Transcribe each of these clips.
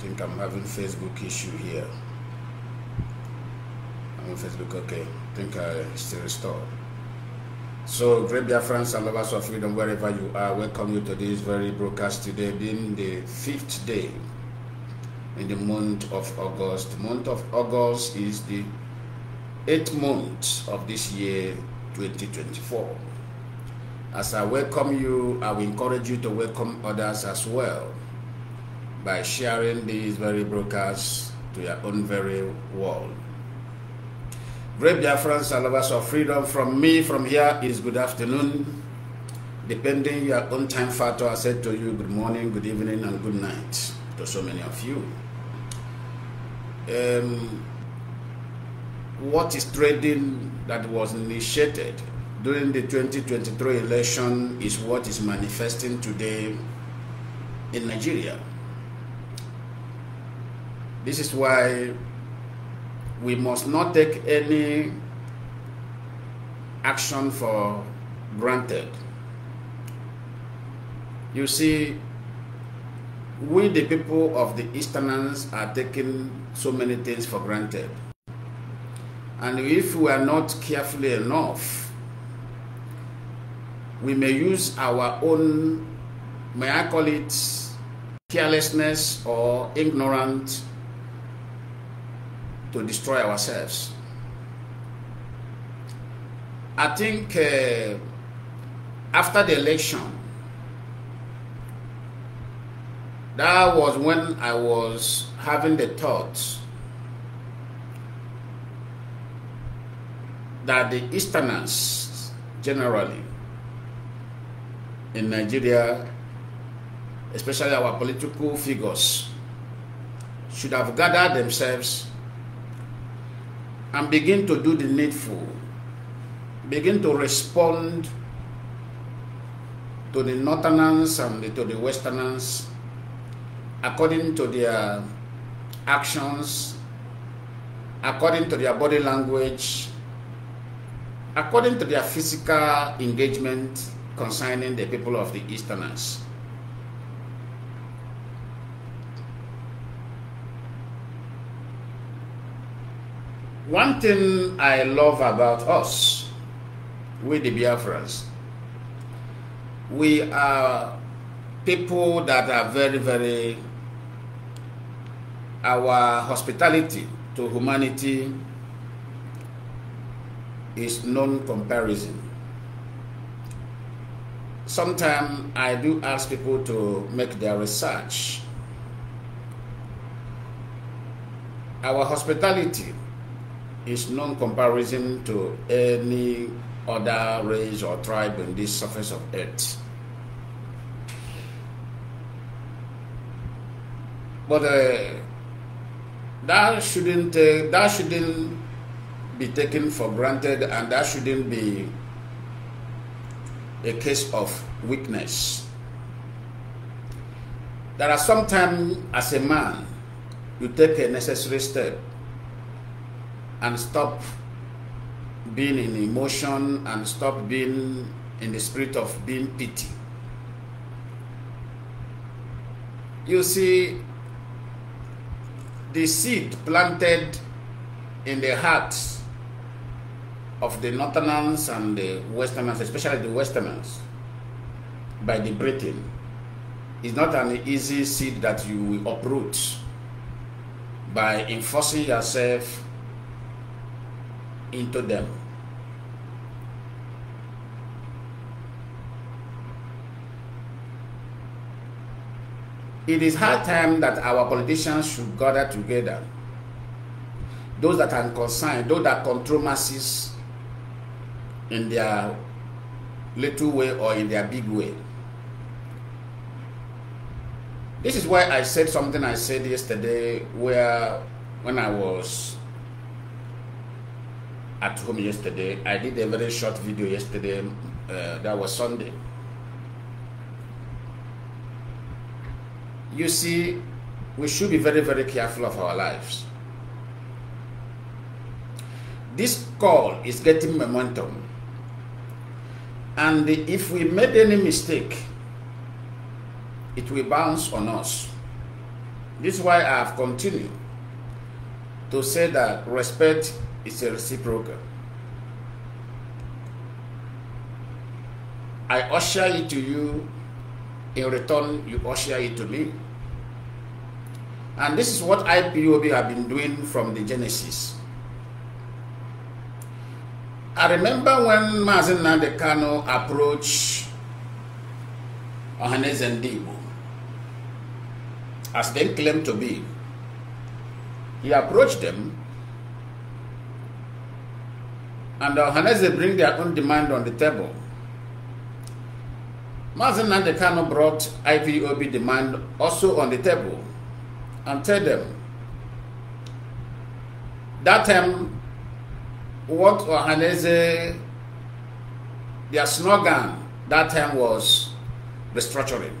I think I'm having Facebook issue here. I'm on Facebook, okay. think I still restore. So, great dear friends and lovers of freedom, wherever you are, welcome you to this very broadcast today, being the fifth day in the month of August. month of August is the eighth month of this year, 2024. As I welcome you, I will encourage you to welcome others as well by sharing these very broadcasts to your own very world. Great Biafrans and lovers of freedom from me from here is good afternoon. Depending your own time factor, I said to you good morning, good evening, and good night to so many of you. Um, what is trading that was initiated during the 2023 election is what is manifesting today in Nigeria. This is why we must not take any action for granted. You see, we, the people of the Easterners, are taking so many things for granted. And if we are not careful enough, we may use our own, may I call it carelessness or ignorance to destroy ourselves. I think uh, after the election, that was when I was having the thoughts that the Easterners generally in Nigeria, especially our political figures, should have gathered themselves and begin to do the needful. Begin to respond to the northerners and to the westerners according to their actions, according to their body language, according to their physical engagement concerning the people of the easterners. One thing I love about us, we the Biafrans, we are people that are very, very, our hospitality to humanity is non-comparison. Sometimes I do ask people to make their research. Our hospitality is non-comparison to any other race or tribe on this surface of earth. But uh, that shouldn't uh, that shouldn't be taken for granted, and that shouldn't be a case of weakness. There are sometimes, as a man, you take a necessary step and stop being in emotion and stop being in the spirit of being pity. You see, the seed planted in the hearts of the Northerners and the Westerners, especially the Westerners, by the Britain, is not an easy seed that you will uproot by enforcing yourself into them. It is high time that our politicians should gather together. Those that are concerned, those that control masses in their little way or in their big way. This is why I said something I said yesterday where when I was at home yesterday. I did a very short video yesterday. Uh, that was Sunday. You see, we should be very, very careful of our lives. This call is getting momentum. And if we made any mistake, it will bounce on us. This is why I have continued to say that respect it's a reciprocal. I usher it to you, in return, you usher it to me. And this is what IPOB have been doing from the Genesis. I remember when Mazin Nandekano approached and Ndibo, as they claimed to be, he approached them And uh, they bring their own demand on the table. Mazin Nandekano brought IPOB demand also on the table and tell them that time um, what Ohaneze their slogan that time was restructuring.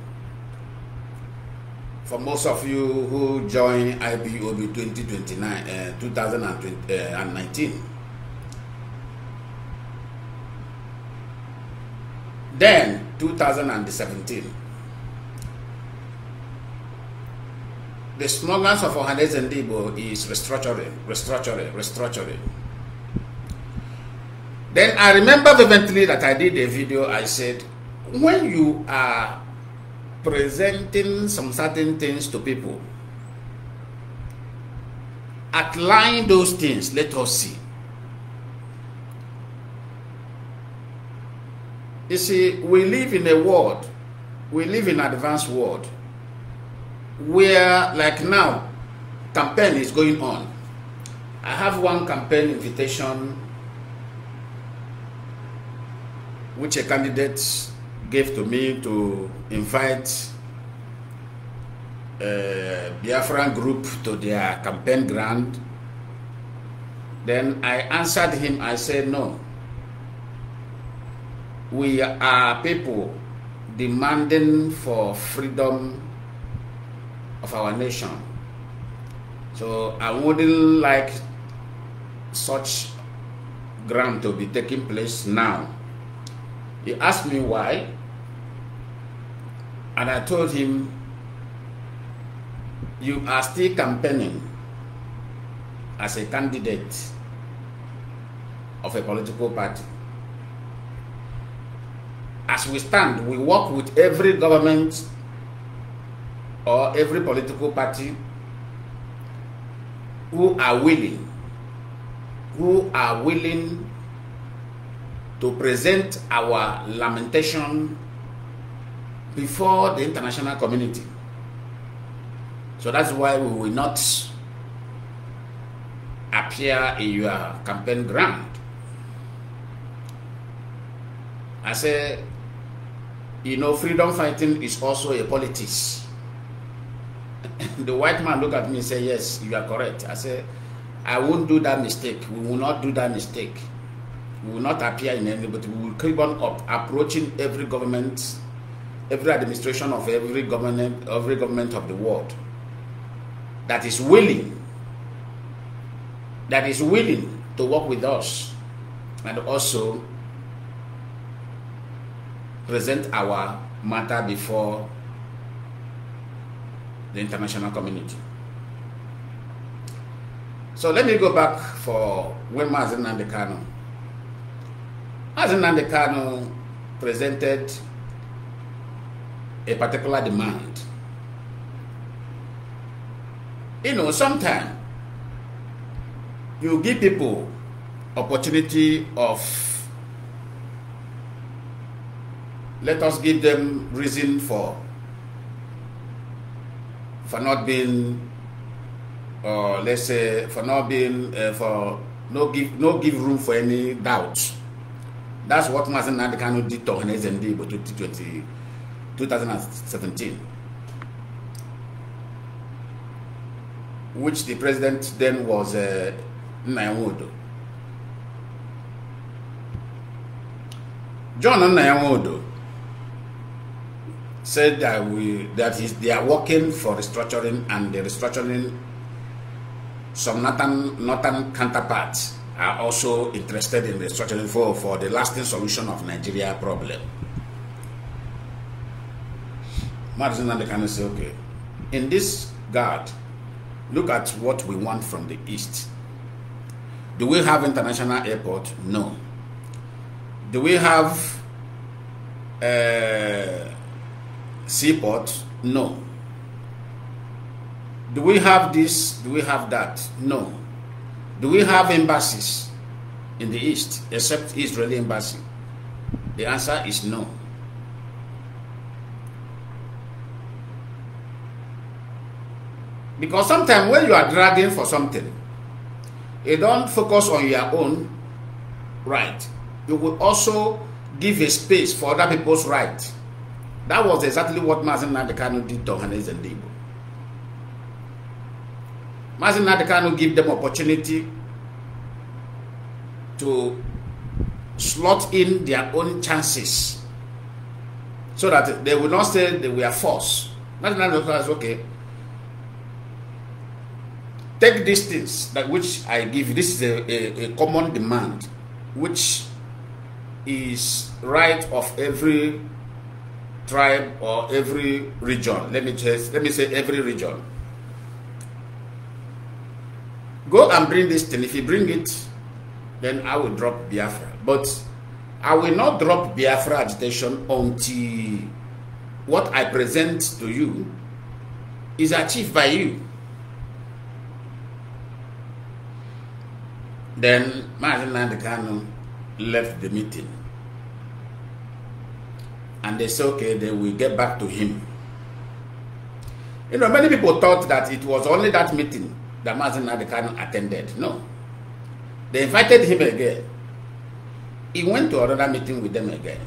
For most of you who joined IBOB 2029, uh, 2019, Then 2017, the smugglers of Ohanes and Debo is restructuring, restructuring, restructuring. Then I remember vividly that I did a video. I said, when you are presenting some certain things to people, outline those things. Let us see. You see, we live in a world, we live in advanced world, where like now, campaign is going on. I have one campaign invitation which a candidate gave to me to invite uh, Biafran group to their campaign ground. Then I answered him, I said, no, we are people demanding for freedom of our nation. So I wouldn't like such ground to be taking place now. He asked me why, and I told him, You are still campaigning as a candidate of a political party. as we stand, we work with every government or every political party who are willing, who are willing to present our lamentation before the international community. So that's why we will not appear in your campaign ground. I say you know, freedom fighting is also a politics. the white man looked at me and said, yes, you are correct. I said, I won't do that mistake. We will not do that mistake. We will not appear in any, but we will keep on up, approaching every government, every administration of every government, every government of the world that is willing, that is willing to work with us and also present our matter before the international community. So let me go back for when Mazen Nandekano. Mazen Nandekano presented a particular demand. You know, sometimes you give people opportunity of Let us give them reason for for not being, or uh, let's say, for not being, uh, for no give no give room for any doubt. That's what Mazen Nadekano did to NSND in 2020, 2017. which the president then was uh, John Nnayawodo said that we that is they are working for restructuring and the restructuring some northern northern counterparts are also interested in restructuring for, for the lasting solution of Nigeria problem. Madison Namdekan say, okay, in this guard, look at what we want from the East. Do we have international airport? No. Do we have uh, seaport? No. Do we have this? Do we have that? No. Do we have embassies in the East except Israeli embassy? The answer is no. Because sometimes when you are dragging for something, you don't focus on your own right. You will also give a space for other people's right. That was exactly what Mazin Nadekano did to Hanes and Debo. Mazin Nadekano gave them opportunity to slot in their own chances so that they will not say they were forced. Mazin Nadekano says, okay, take these things that which I give you. This is a, a, a common demand, which is right of every tribe or every region. Let me just let me say every region. Go and bring this thing. If you bring it, then I will drop Biafra. But I will not drop Biafra agitation until what I present to you is achieved by you. Then Martin Landekano left the meeting and they say, okay, they will get back to him. You know, many people thought that it was only that meeting that Mazin Adekan attended. No. They invited him again. He went to another meeting with them again.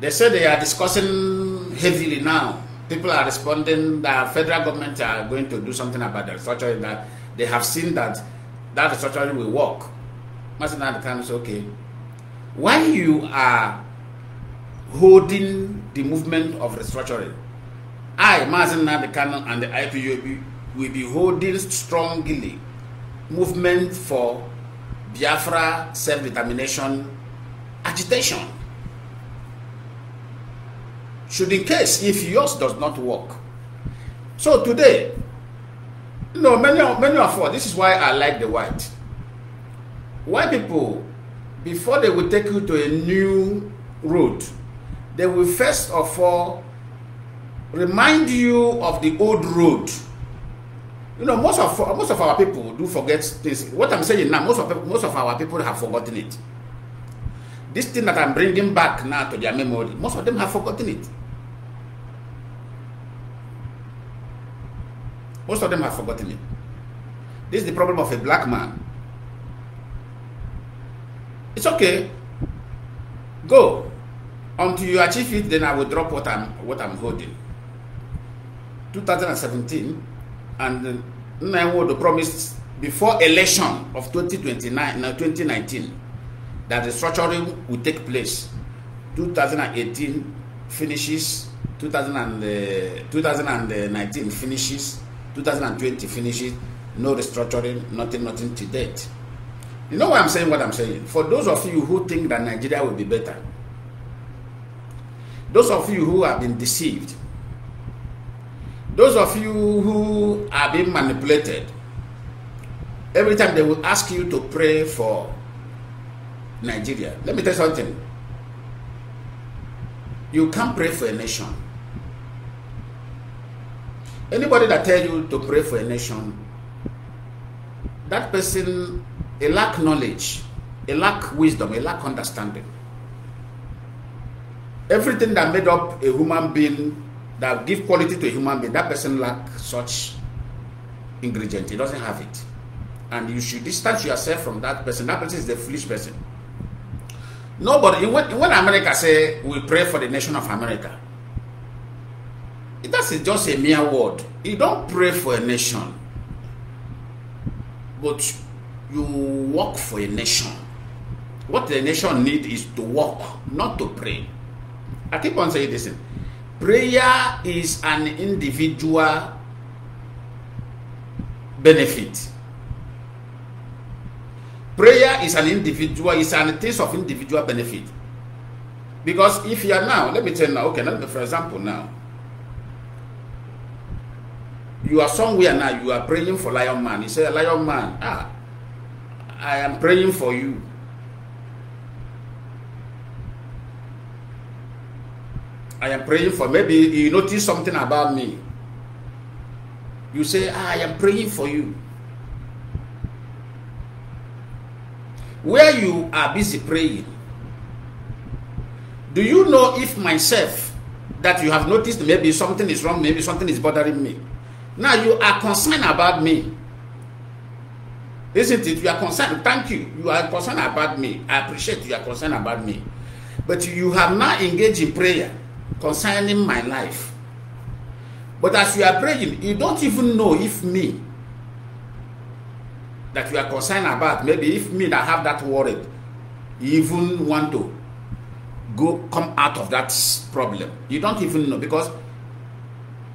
They said they are discussing heavily now. People are responding that federal government are going to do something about the restructuring that they have seen that that restructuring will work. Mazin Adekan said, okay, why you are holding the movement of restructuring. I, Mazin Nabi Canon, and the IPUB will be holding strongly movement for Biafra self-determination agitation. Should in case if yours does not work. So today, you know, many, many of us, this is why I like the white. White people, before they will take you to a new route. they will first of all remind you of the old road. You know, most of most of our people do forget things. What I'm saying now, most of most of our people have forgotten it. This thing that I'm bringing back now to their memory, most of them have forgotten it. Most of them have forgotten it. This is the problem of a black man. It's okay. Go. until you achieve it then i will drop what i'm what i'm holding 2017 and Nnamdi promised before election of 2029 now 2019 that the structuring will take place 2018 finishes 2000 and, uh, 2019 finishes 2020 finishes no restructuring nothing nothing to date you know why i'm saying what i'm saying for those of you who think that nigeria will be better Those of you who have been deceived, those of you who have been manipulated, every time they will ask you to pray for Nigeria. Let me tell you something. You can't pray for a nation. Anybody that tells you to pray for a nation, that person a lack knowledge, a lack wisdom, a lack understanding everything that made up a human being that give quality to a human being that person lack such ingredient he doesn't have it and you should distance yourself from that person that person is the foolish person nobody when, when america say we pray for the nation of america that is just a mere word you don't pray for a nation but you work for a nation what the nation need is to work not to pray I keep on saying this thing. Prayer is an individual benefit. Prayer is an individual, it's an taste of individual benefit. Because if you are now, let me tell you now, okay, let for example, now, you are somewhere now, you are praying for Lion Man. You say, Lion Man, ah, I am praying for you. I am praying for. Maybe you notice something about me. You say, ah, I am praying for you. Where you are busy praying, do you know if myself that you have noticed maybe something is wrong, maybe something is bothering me? Now you are concerned about me. Isn't it? You are concerned. Thank you. You are concerned about me. I appreciate you are concerned about me. But you have not engaged in prayer concerning my life. But as you are praying, you don't even know if me that you are concerned about, maybe if me that have that worried, even want to go come out of that problem. You don't even know because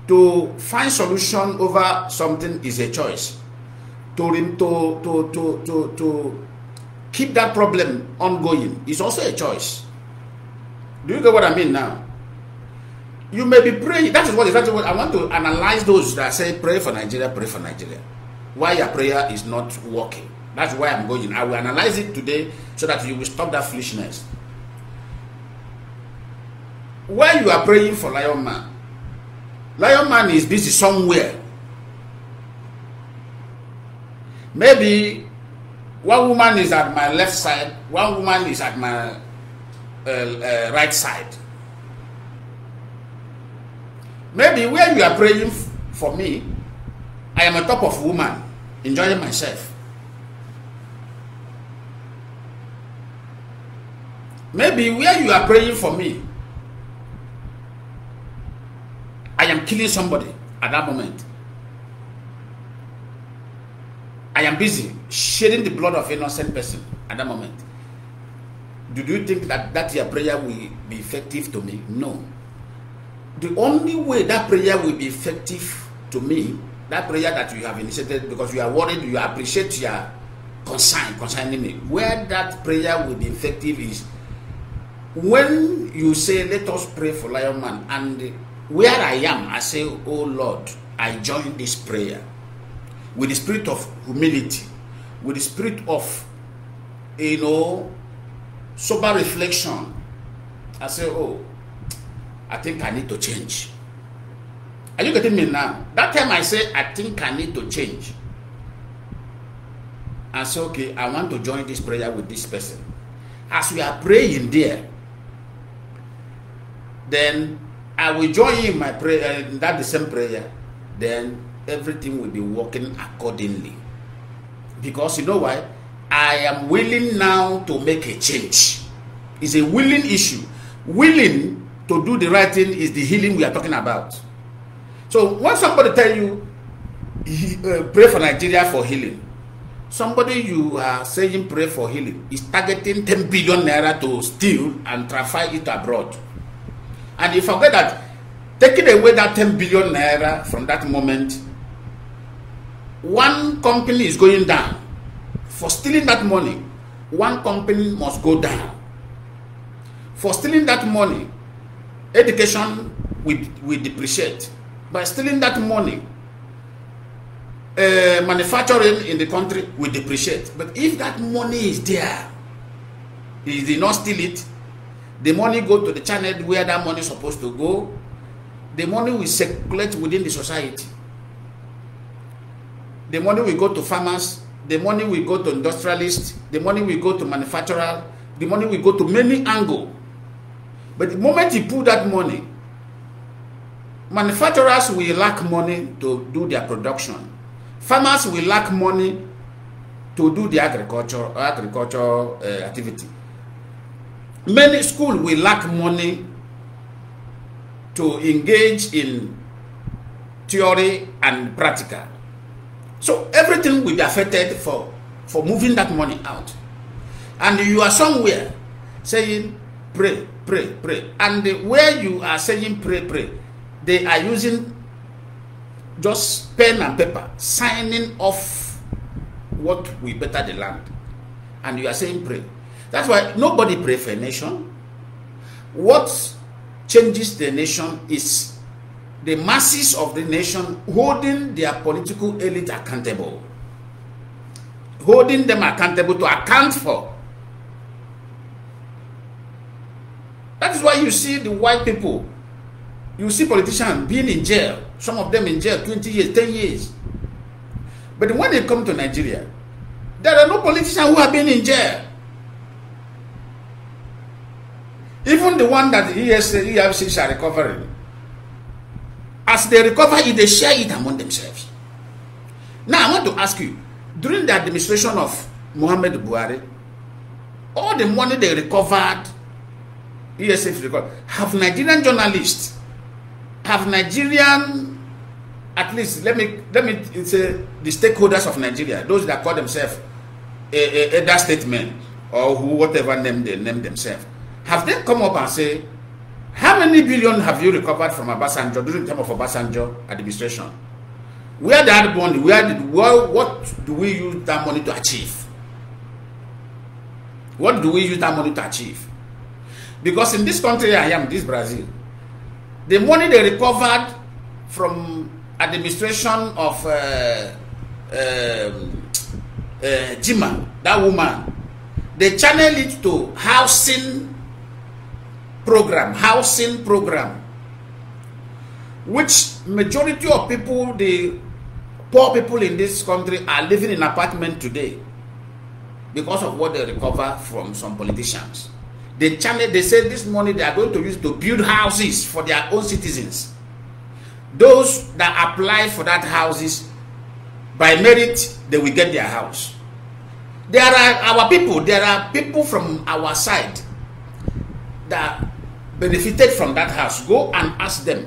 to find solution over something is a choice. to to to to, to keep that problem ongoing is also a choice. Do you get what I mean now? You may be praying. That is what exactly what I want to analyze those that say pray for Nigeria, pray for Nigeria. Why your prayer is not working. That's why I'm going. I will analyze it today so that you will stop that foolishness. Why you are praying for Lion Man, Lion Man is busy somewhere. Maybe one woman is at my left side, one woman is at my uh, uh, right side. Maybe where you are praying for me, I am on top of woman, enjoying myself. Maybe where you are praying for me, I am killing somebody at that moment. I am busy shedding the blood of innocent person at that moment. Do you think that that your prayer will be effective to me? No. the only way that prayer will be effective to me, that prayer that you have initiated because you are worried, you appreciate your concern concerning me, where that prayer will be effective is when you say, Let us pray for Lion Man, and where I am, I say, Oh Lord, I join this prayer with the spirit of humility, with the spirit of, you know, sober reflection. I say, Oh, I think I need to change. Are you getting me now? That time I say, I think I need to change. I say, okay, I want to join this prayer with this person. As we are praying there, then I will join in my prayer, uh, that the same prayer. Then everything will be working accordingly. Because you know why? I am willing now to make a change. It's a willing issue. Willing to do the right thing is the healing we are talking about. So when somebody tell you, uh, pray for Nigeria for healing, somebody you are saying pray for healing is targeting 10 billion naira to steal and traffic it abroad. And you forget that taking away that 10 billion naira from that moment, one company is going down. For stealing that money, one company must go down. For stealing that money, education we, we depreciate. By stealing that money, uh, manufacturing in the country we depreciate. But if that money is there, he did not steal it, the money go to the channel where that money is supposed to go, the money will circulate within the society. The money will go to farmers, the money will go to industrialists, the money will go to manufacturers, the money will go to many angles But the moment you pull that money, manufacturers will lack money to do their production. Farmers will lack money to do the agriculture, agriculture uh, activity. Many schools will lack money to engage in theory and practical. So everything will be affected for, for moving that money out. And you are somewhere saying, pray, pray, pray. And the, where you are saying pray, pray, they are using just pen and paper, signing off what we better the land. And you are saying pray. That's why nobody pray for a nation. What changes the nation is the masses of the nation holding their political elite accountable, holding them accountable to account for That is why you see the white people, you see politicians being in jail, some of them in jail 20 years, 10 years. But when they come to Nigeria, there are no politicians who have been in jail. Even the one that the EFC, EFCs are recovering, as they recover they share it among themselves. Now, I want to ask you during the administration of Muhammad Buhari, all the money they recovered ESF record. Have Nigerian journalists, have Nigerian, at least let me let me say the stakeholders of Nigeria, those that call themselves a, a, a statement or who, whatever name they name themselves, have they come up and say, how many billion have you recovered from Obasanjo during the time of Obasanjo administration? Where the that money, where did, where, what do we use that money to achieve? What do we use that money to achieve? Because in this country I am, this Brazil, the money they recovered from administration of uh, um, uh, Jima, that woman, they channel it to housing program, housing program, which majority of people, the poor people in this country are living in apartment today because of what they recover from some politicians. They channel, they say this money they are going to use to build houses for their own citizens. Those that apply for that houses, by merit, they will get their house. There are our people, there are people from our side that benefited from that house. Go and ask them,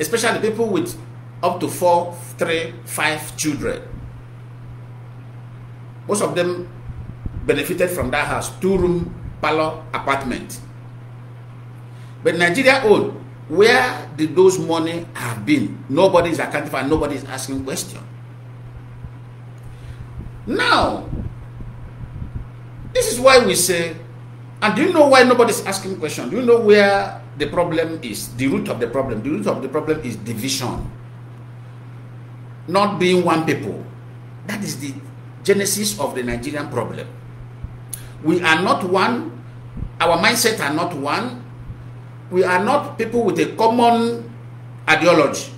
especially people with up to four, three, five children. Most of them benefited from that house, two room apartment. But Nigeria own, where did those money have been? Nobody is accounting for, is asking question. Now, this is why we say, and do you know why nobody's asking question? Do you know where the problem is? The root of the problem. The root of the problem is division. Not being one people. That is the genesis of the Nigerian problem. We are not one. Our mindset are not one. We are not people with a common ideology.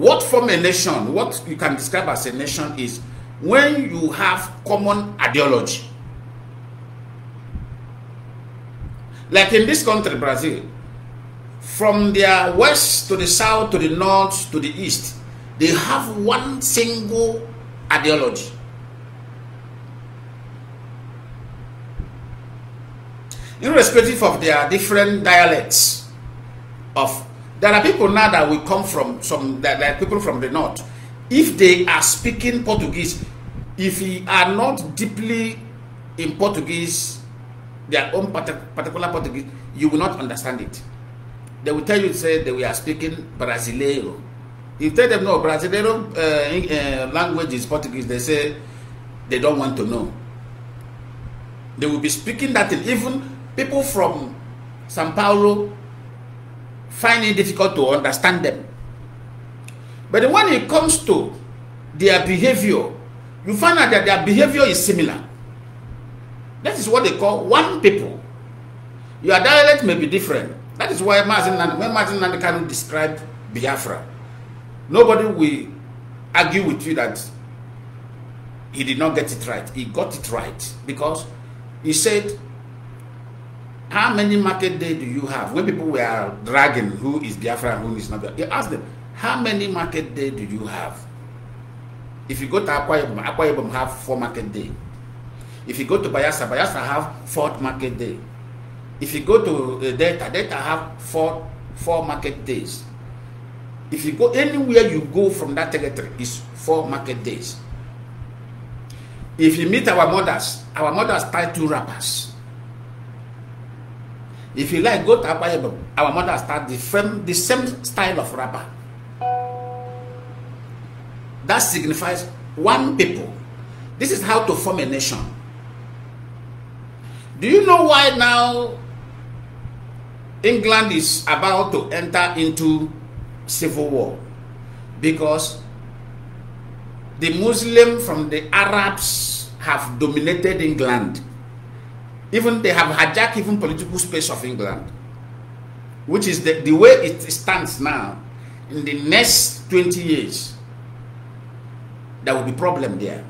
What form a nation, what you can describe as a nation is when you have common ideology. Like in this country, Brazil, from their west to the south to the north to the east, they have one single ideology. irrespective of their different dialects of there are people now that will come from some that, that people from the north if they are speaking portuguese if you are not deeply in portuguese their own particular portuguese you will not understand it they will tell you say that we are speaking brasileiro you tell them no brasileiro uh, uh, language is portuguese they say they don't want to know they will be speaking that in even people from Sao Paulo find it difficult to understand them. But when it comes to their behavior, you find out that their behavior is similar. That is what they call one people. Your dialect may be different. That is why Martin, when Martin Nandekano described Biafra, nobody will argue with you that he did not get it right. He got it right because he said How many market day do you have? When people were dragging who is Biafra and who is not Biafra, you ask them, how many market day do you have? If you go to Akwa Ibom, Akwa Ibom have four market day. If you go to Bayasa, Bayasa have four market day. If you go to uh, Delta, Delta have four four market days. If you go anywhere you go from that territory is four market days. If you meet our mothers, our mothers tie two wrappers. If you like, go to Our mother start the same, the same style of rapper. That signifies one people. This is how to form a nation. Do you know why now England is about to enter into civil war? Because the Muslim from the Arabs have dominated England even they have hijacked even political space of England, which is the, the way it stands now. In the next 20 years, there will be problem there.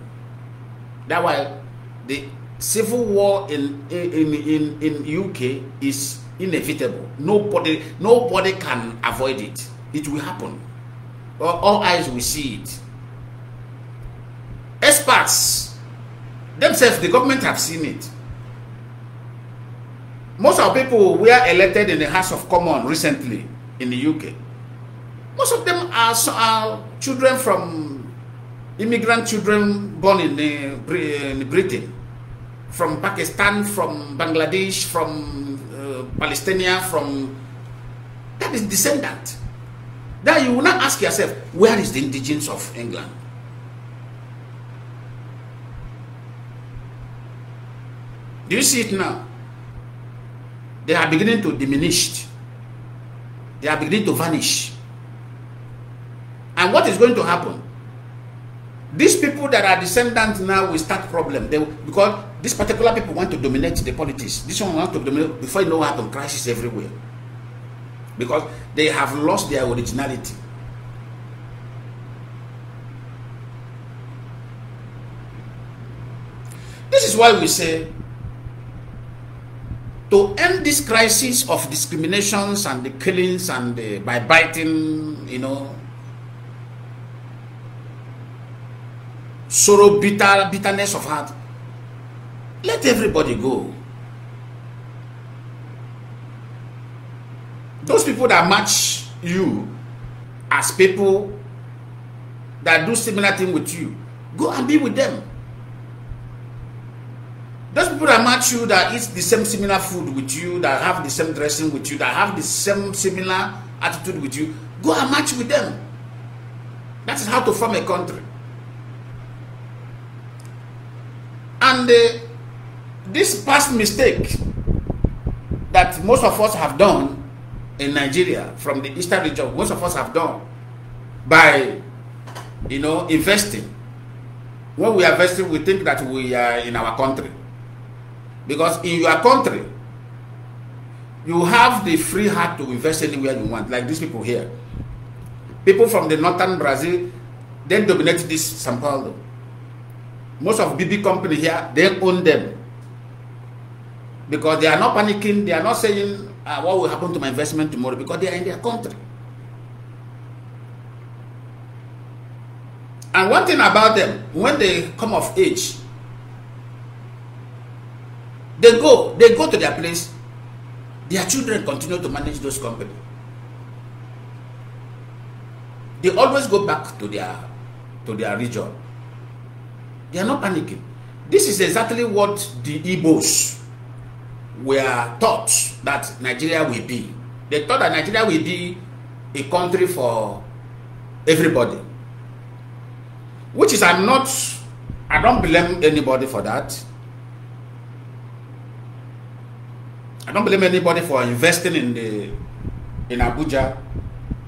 That's why the civil war in in in, in UK is inevitable. Nobody nobody can avoid it. It will happen. All, all eyes will see it. Experts themselves, the government have seen it. most of people were elected in the House of Commons recently in the UK. Most of them are, are children from immigrant children born in, the, in Britain, from Pakistan, from Bangladesh, from uh, Palestine, from that is descendant. Then you will not ask yourself, where is the indigenous of England? Do you see it now? they are beginning to diminish. They are beginning to vanish. And what is going to happen? These people that are descendants now will start problem. They, because these particular people want to dominate the politics. This one wants to dominate. Before you know what happened, crisis everywhere. Because they have lost their originality. This is why we say to end this crisis of discriminations and the killings and the, by biting, you know, sorrow, bitter, bitterness of heart, let everybody go. Those people that match you as people that do similar thing with you, go and be with them. Those people that match you, that eat the same similar food with you, that have the same dressing with you, that have the same similar attitude with you, go and match with them. That is how to form a country. And uh, this past mistake that most of us have done in Nigeria from the eastern region, most of us have done by, you know, investing. When we are investing, we think that we are in our country. Because in your country, you have the free heart to invest anywhere you want, like these people here. People from the northern Brazil, they dominate this Sao Paulo. Most of BB company here, they own them. Because they are not panicking, they are not saying, ah, what will happen to my investment tomorrow, because they are in their country. And one thing about them, when they come of age, They go, they go to their place. Their children continue to manage those companies. They always go back to their to their region. They are not panicking. This is exactly what the Igbos were taught that Nigeria will be. They thought that Nigeria will be a country for everybody. Which is I'm not I don't blame anybody for that. I don't blame anybody for investing in the in Abuja,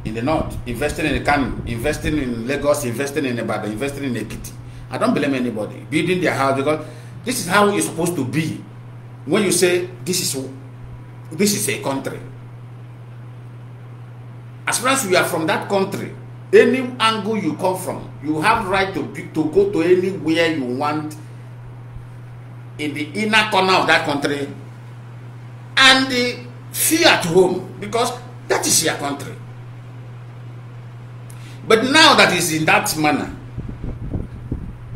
in the north, investing in Kano, investing in Lagos, investing in Ibadan, investing in Ekiti. I don't blame anybody building their house because this is how it's supposed to be. When you say this is this is a country, as far as you are from that country, any angle you come from, you have right to to go to anywhere you want in the inner corner of that country and the fear at home because that is your country. But now that is in that manner,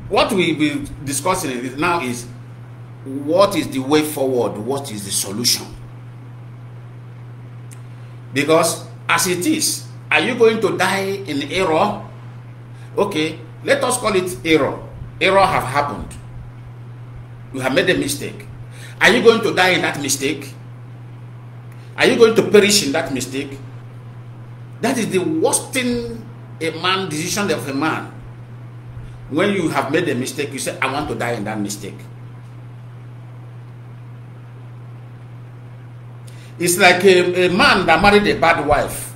what we will be discussing now is what is the way forward, what is the solution? Because as it is, are you going to die in error? Okay, let us call it error. Error have happened. You have made a mistake. Are you going to die in that mistake? Are you going to perish in that mistake? That is the worst thing a man, decision of a man. When you have made a mistake, you say, I want to die in that mistake. It's like a, a man that married a bad wife.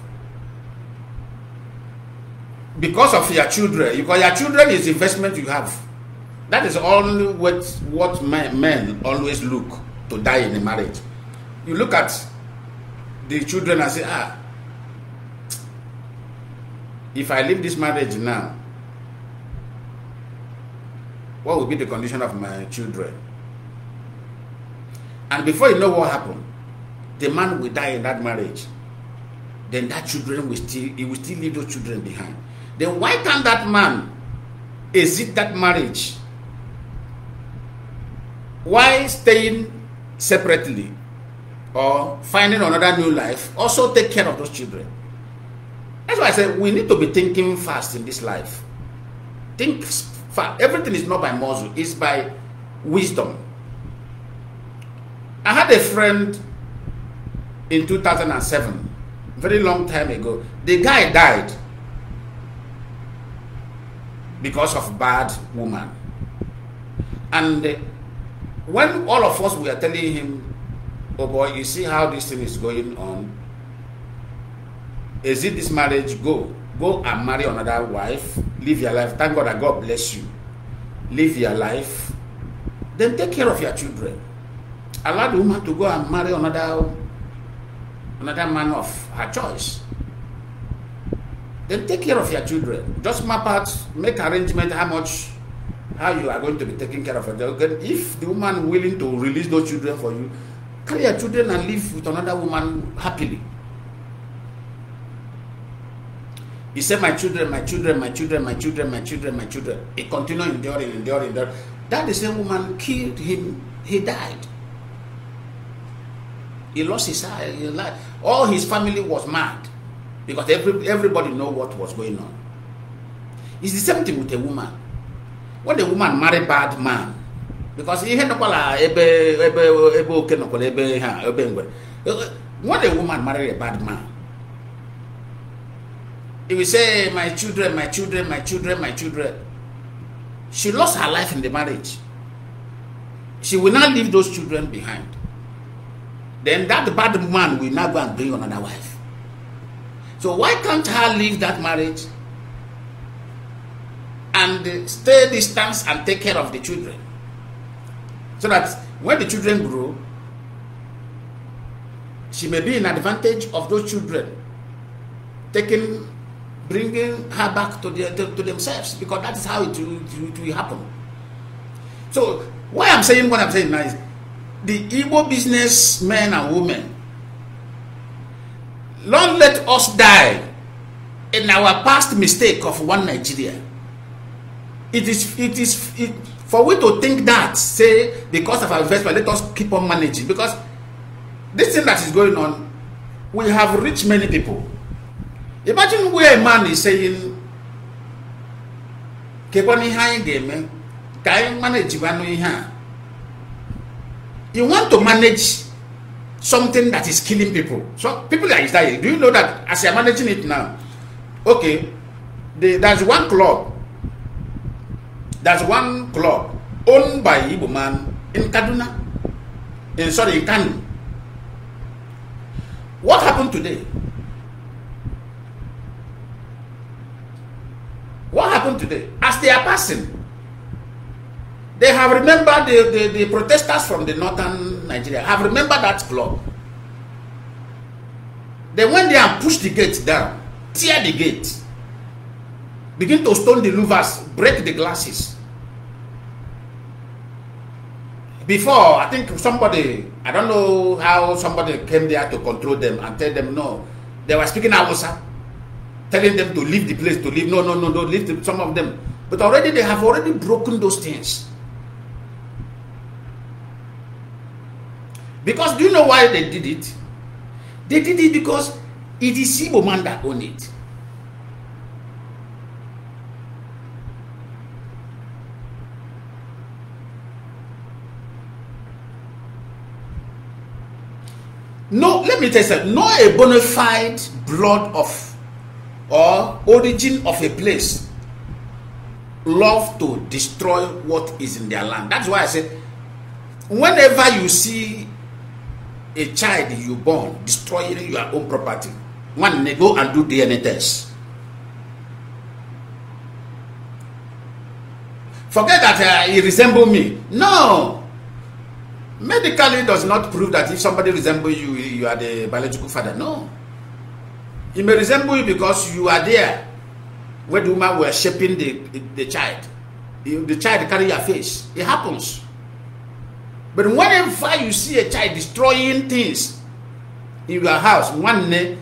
Because of your children, because your children is investment you have. That is only what, what men, men always look to die in a marriage. You look at the children I say, ah, if I leave this marriage now, what will be the condition of my children? And before you know what happened, the man will die in that marriage. Then that children will still, he will still leave those children behind. Then why can't that man exit that marriage? Why staying separately or finding another new life also take care of those children. That's why I said we need to be thinking fast in this life. Think fast. Everything is not by muscle, it's by wisdom. I had a friend in 2007, very long time ago. The guy died because of bad woman. And uh, when all of us were telling him Oh boy, you see how this thing is going on? Is it this marriage? Go. Go and marry another wife. Live your life. Thank God that God bless you. Live your life. Then take care of your children. Allow the woman to go and marry another another man of her choice. Then take care of your children. Just map out, make arrangement how much, how you are going to be taking care of children? If the woman willing to release those children for you, Carry your children and live with another woman happily. He said, My children, my children, my children, my children, my children, my children. He continued enduring, enduring, enduring. That the same woman killed him, he died. He lost his eye, life. All his family was mad because every, everybody know what was going on. It's the same thing with a woman. When a woman marry bad man, because ihe nọkwala ebe ebe ebe oke nọkwala ebe ha ebe ngwere What a woman marry a bad man He will say my children my children my children my children she lost her life in the marriage she will not leave those children behind then that bad man will now go and bring another wife so why can't her leave that marriage and stay distance and take care of the children So that when the children grow, she may be in advantage of those children, taking, bringing her back to, the, to, to themselves because that is how it will, it will happen. So why I'm saying what I'm saying now is the Igbo business men and women, long let us die in our past mistake of one Nigeria. It is, it is, it, for we to think that say because of our investment let us keep on managing because this thing that is going on we have reached many people imagine where a man is saying kekwana ihe anyị ga-eme ka anyị manajigbanụ ihe a you want to manage something that is killing people so people are dying do you know that as you are managing it now okay the, there's one club There's one club owned by Igbo man in Kaduna, in sorry, in Kanu. What happened today? What happened today? As they are passing, they have remembered the, the, the protesters from the northern Nigeria have remembered that club. They went there and pushed the gate down, tear the gate, begin to stone the louvers, break the glasses. Before, I think somebody, I don't know how somebody came there to control them and tell them no. They were speaking Hausa, telling them to leave the place, to leave. No, no, no, no, leave the, some of them. But already they have already broken those things. Because do you know why they did it? They did it because it is Igbo man that owned it. no let me tell you something No, a bona fide blood of or origin of a place love to destroy what is in their land that's why i say whenever you see a child you born destroying your own property one may go and do dna test forget that uh, he resemble me no Medically does not prove that if somebody resembles you, you are the biological father. No. He may resemble you because you are there when the woman were shaping the, the, child. the child carry your face. It happens. But whenever you see a child destroying things in your house, one day,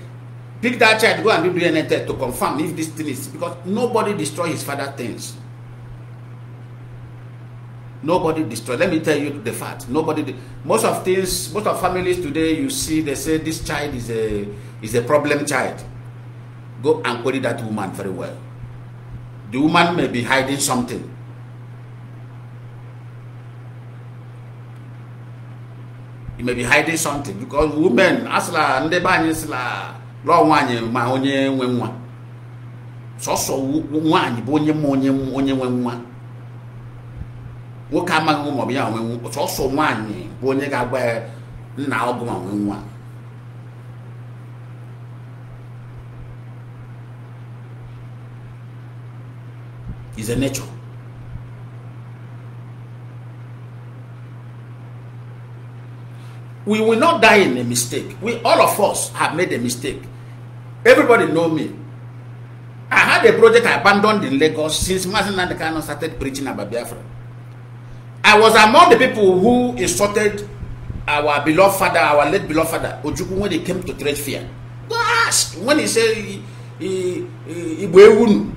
pick that child, go and do DNA test to confirm if this thing is because nobody destroys his father things. Nobody destroyed. Let me tell you the fact. Nobody. Did. Most of things, most of families today, you see, they say this child is a is a problem child. Go and query that woman very well. The woman may be hiding something. You may be hiding something because women, asla ndị be anyị sila ma onye nwe nwa. Sọsọ nwaanyị bo onye ma onye onye nwe nwoke amaghị ụmụ ọbịa onwe sọsọ nwaanyị bụ onye ga-agba nna ọgụ ma nwee nwa is a we will not die in a mistake we all of us have made a mistake everybody know me i had a project i abandoned in lagos since mazinandekano started preaching about biafra I was among the people who insulted our beloved father, our late beloved father, Ojukwu, when they came to trade fear. Go ask when he said Ibuewunu.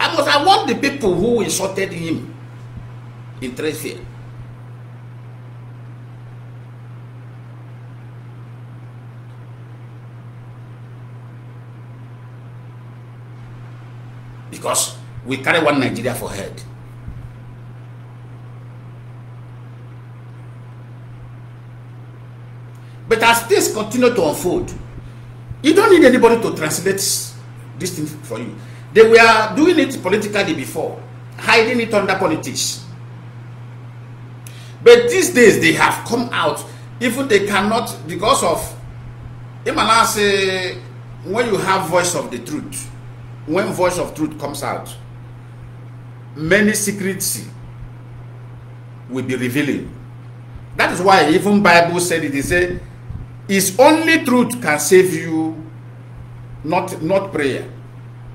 I was among the people who insulted him in trade fear. Because we carry one Nigeria for head. But as things continue to unfold, you don't need anybody to translate this thing for you. They were doing it politically before, hiding it under politics. But these days they have come out, even they cannot, because of Imala say, when you have voice of the truth, when voice of truth comes out, many secrets will be revealing. That is why even Bible said it, they say, His only truth can save you, not, not prayer.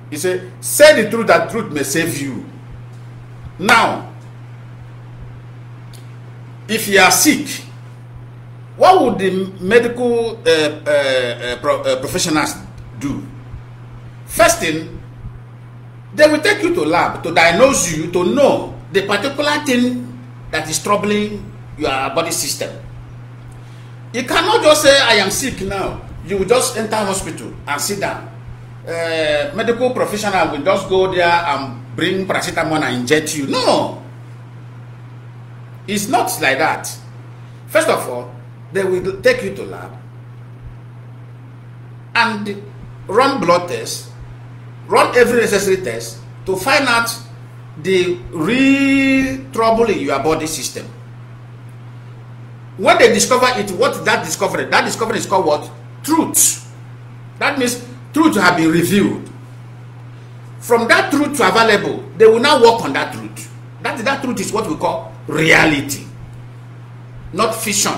He say, Say the truth that truth may save you. Now, if you are sick, what would the medical uh, uh, uh, pro uh, professionals do? First thing, they will take you to lab to diagnose you to know the particular thing that is troubling your body system. You cannot just say, I am sick now. You just enter hospital and sit down. Uh, medical professional will just go there and bring paracetamol and inject you. No. It's not like that. First of all, they will take you to lab and run blood tests, run every necessary test to find out the real trouble in your body system. when they discover it, what that discovery? That discovery is called what? Truth. That means truth have been revealed. From that truth to available, they will now work on that truth. That, that truth is what we call reality. Not fiction,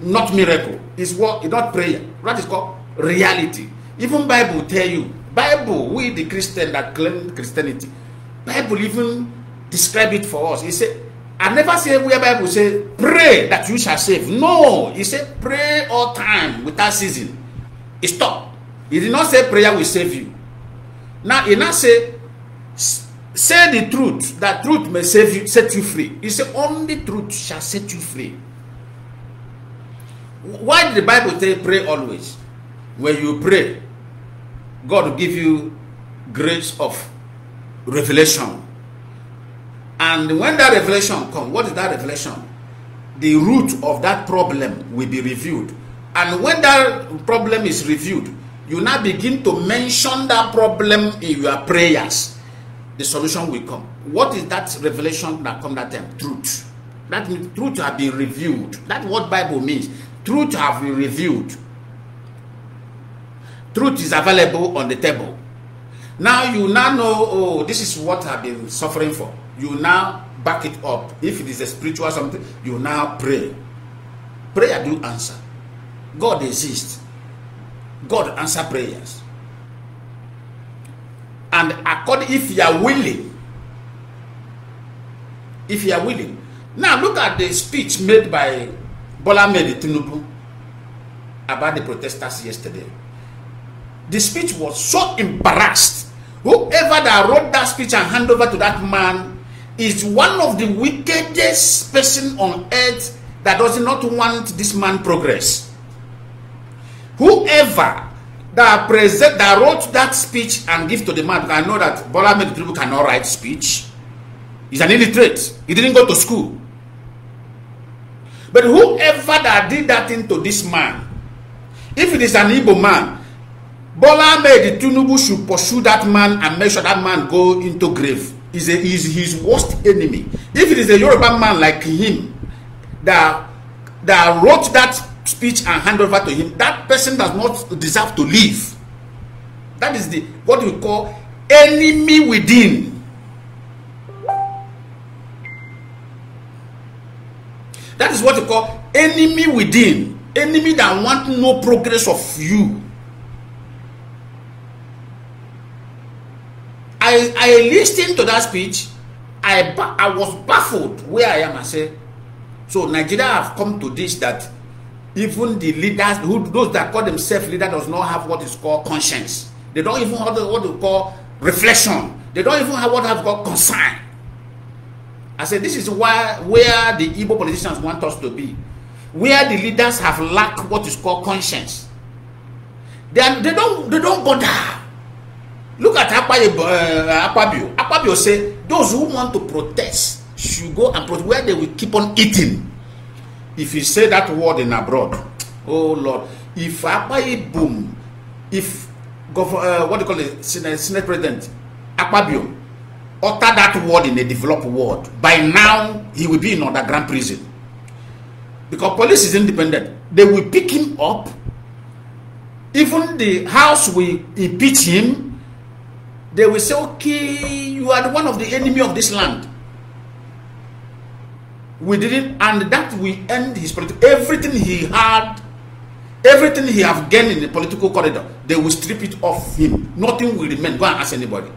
not miracle. It's what not prayer. That is called reality. Even Bible tell you, Bible, we the Christian that claim Christianity, Bible even describe it for us. He said, I never say where Bible say pray that you shall save. No, he said pray all time without season. He stop. He did not say prayer will save you. Now he now say say the truth that truth may save you, set you free. He said only truth shall set you free. Why did the Bible say pray always? When you pray, God give you grace of revelation And when that revelation comes, what is that revelation? The root of that problem will be reviewed. And when that problem is reviewed, you now begin to mention that problem in your prayers. The solution will come. What is that revelation that come that time? Truth. That means truth have been reviewed. That's what Bible means. Truth have been reviewed. Truth is available on the table. Now you now know, oh, this is what I've been suffering for you now back it up. If it is a spiritual something, you now pray. Prayer do answer. God exists. God answer prayers. And according if you are willing, if you are willing. Now look at the speech made by Bola Mehmed Tinubu about the protesters yesterday. The speech was so embarrassed. Whoever that wrote that speech and hand over to that man is one of the wickedest person on earth that does not want this man progress. Whoever that present that wrote that speech and give to the man, I know that Bola people cannot write speech. He's an illiterate. He didn't go to school. But whoever that did that thing to this man, if it is an evil man, Bola Ahmed should pursue that man and make sure that man go into grave. is, a, is his worst enemy. If it is a Yoruba man like him that, that wrote that speech and hand over to him, that person does not deserve to live. That is the what we call enemy within. That is what we call enemy within. Enemy that want no progress of you. I I listened to that speech. I I was baffled where I am. I say, so Nigeria have come to this that even the leaders who those that call themselves leader does not have what is called conscience. They don't even have what they call reflection. They don't even have what have called concern. I say this is why where the Igbo politicians want us to be, where the leaders have lack what is called conscience. They, are, they don't they don't bother Look at Akpabio. Uh, eh, Akpabio. Akpabio say those who want to protest should go and protest where they will keep on eating. If he say that word in abroad, oh Lord, if Akpabio boom, if uh, what do you call it, Senate, President Akpabio utter that word in a developed world, by now he will be in underground prison. Because police is independent, they will pick him up. Even the house will impeach him they will say, okay, you are one of the enemy of this land. We didn't, and that will end his political, everything he had, everything he have gained in the political corridor, they will strip it off him. Nothing will remain. Go and ask anybody.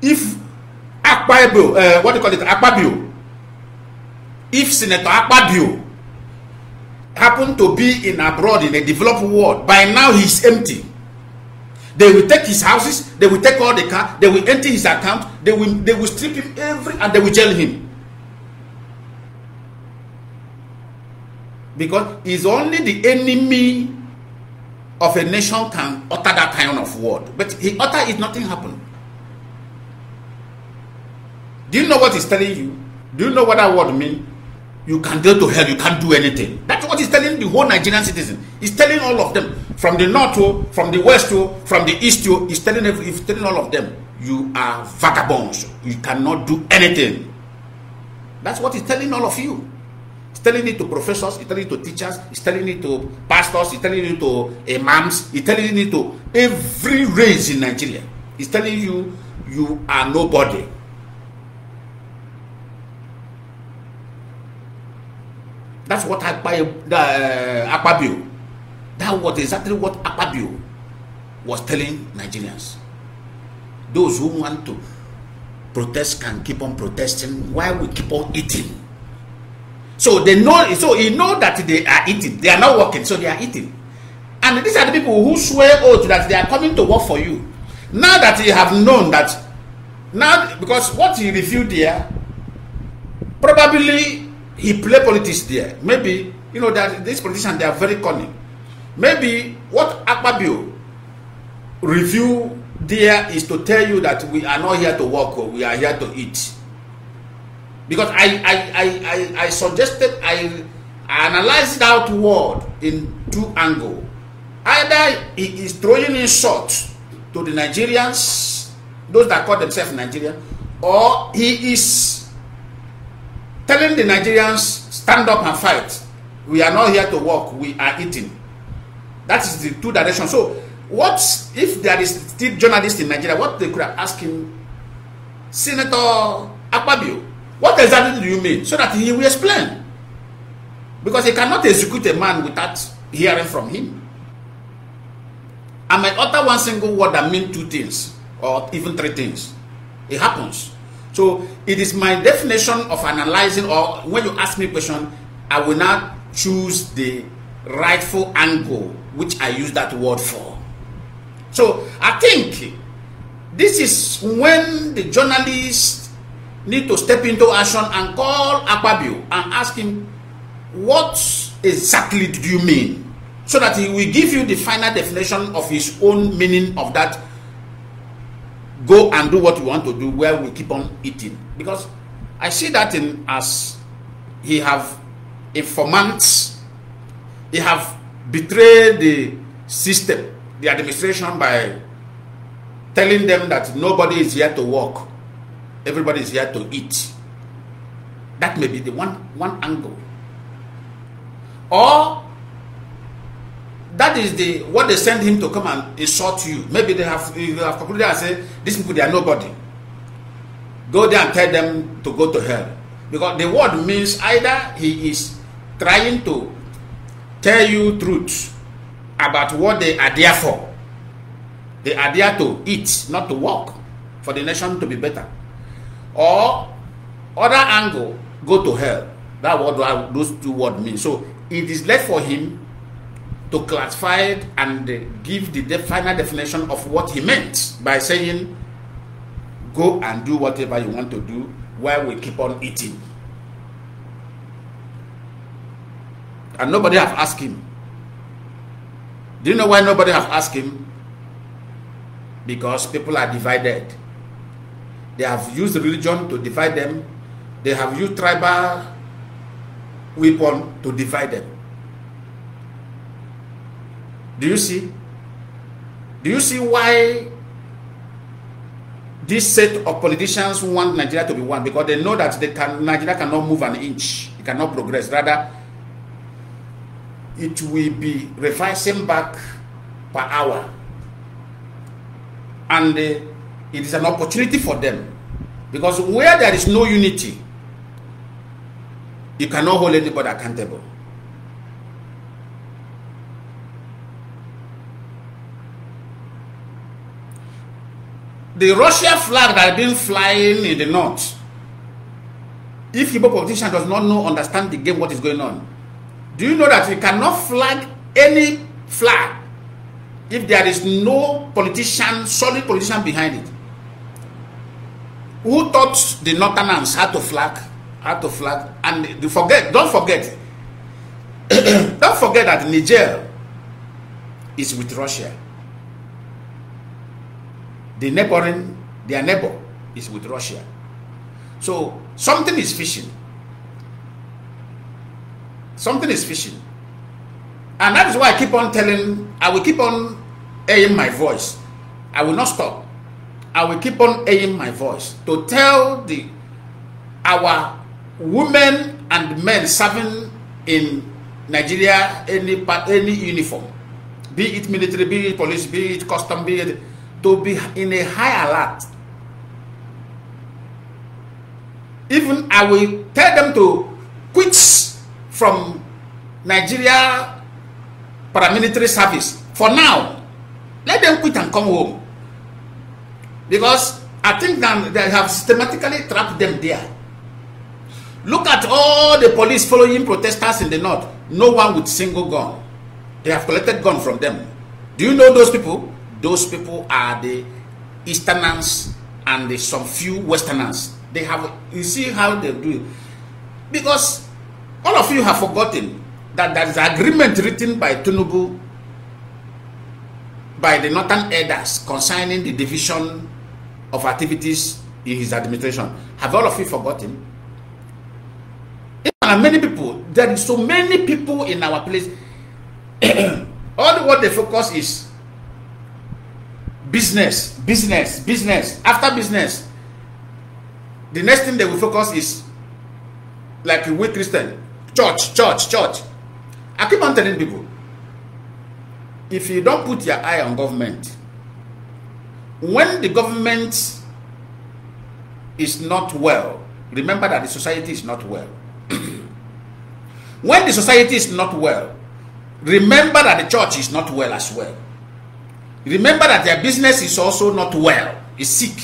If Akpabio, uh, eh, what do you call it, Akpabio, if Senator Akpabio happened to be in abroad in a developed world, by now he's empty. They will take his houses, they will take all the car, they will empty his account, they will they will strip him every and they will jail him. Because it's only the enemy of a nation can utter that kind of word. But he utter it, nothing happened. Do you know what he's telling you? Do you know what that word means? you can go to hell you can't do anything that's what he's telling the whole nigerian citizen he's telling all of them from the north to oh, from the west to oh, from the east to oh, he's telling every, he's telling all of them you are vagabonds you cannot do anything that's what he's telling all of you he's telling it to professors he's telling it to teachers he's telling it to pastors he's telling it to imams he's telling it to every race in nigeria he's telling you you are nobody That's what Akpabio, uh, Akpabio, that was exactly what Akpabio was telling Nigerians. Those who want to protest can keep on protesting while we keep on eating. So they know, so he know that they are eating. They are not working, so they are eating. And these are the people who swear oath that they are coming to work for you. Now that you have known that, now because what you revealed there, probably He play politics there. Maybe, you know, that this politicians, they are very cunning. Maybe what Akpabio review there is to tell you that we are not here to work, we are here to eat. Because I, I, I, I, I suggested, I, analyzed that word in two angle. Either he is throwing insult to the Nigerians, those that call themselves Nigerian, or he is telling the Nigerians, stand up and fight. We are not here to work, we are eating. That is the two directions. So, what if there is still journalists in Nigeria, what they could have asked him, Senator Akpabio, what exactly do you mean? So that he will explain. Because he cannot execute a man without hearing from him. I might utter one single word that mean two things, or even three things. It happens. So it is my definition of analyzing, or when you ask me a question, I will not choose the rightful angle which I use that word for. So I think this is when the journalists need to step into action and call Akpabio and ask him, what exactly do you mean? So that he will give you the final definition of his own meaning of that go and do what you want to do where we keep on eating because i see that in as he have informants he have betrayed the system the administration by telling them that nobody is here to work everybody is here to eat that may be the one one angle or that is the what they send him to come and insult you maybe they have you have concluded and say these people they are nobody go there and tell them to go to hell because the word means either he is trying to tell you truth about what they are there for they are there to eat not to work for the nation to be better or other angle go to hell that what those two word mean so it is left for him to classify it and give the final definition of what he meant by saying, go and do whatever you want to do while we keep on eating. And nobody have asked him. Do you know why nobody have asked him? Because people are divided. They have used religion to divide them. They have used tribal weapon to divide them. Do you see? Do you see why this set of politicians want Nigeria to be one? Because they know that they can, Nigeria cannot move an inch. It cannot progress. Rather, it will be revising back per hour. And uh, it is an opportunity for them. Because where there is no unity, you cannot hold anybody accountable. the Russian flag that been flying in the north, if Igbo politician does not know, understand the game, what is going on, do you know that you cannot flag any flag if there is no politician, solid politician behind it? Who taught the Northerners how to flag, how to flag, and they forget, don't forget, don't forget that Niger is with Russia the neighboring, their neighbor is with Russia. So something is fishing. Something is fishing. And that is why I keep on telling, I will keep on airing my voice. I will not stop. I will keep on airing my voice to tell the our women and men serving in Nigeria any any uniform, be it military, be it police, be it custom, be it to be in a high alert. Even I will tell them to quit from Nigeria paramilitary service for now. Let them quit and come home. Because I think that they have systematically trapped them there. Look at all the police following protesters in the north. No one with single gun. They have collected gun from them. Do you know those people? Those people are the Easterners and the, some few Westerners. They have, you see how they do it. Because all of you have forgotten that there is an agreement written by Tunubu by the Northern Elders concerning the division of activities in his administration. Have all of you forgotten? And many people, there is so many people in our place. all what they focus is business, business, business. After business, the next thing they will focus is like a weak Christian church, church, church. I keep on telling people if you don't put your eye on government, when the government is not well, remember that the society is not well. when the society is not well, remember that the church is not well as well. Remember that their business is also not well, is sick.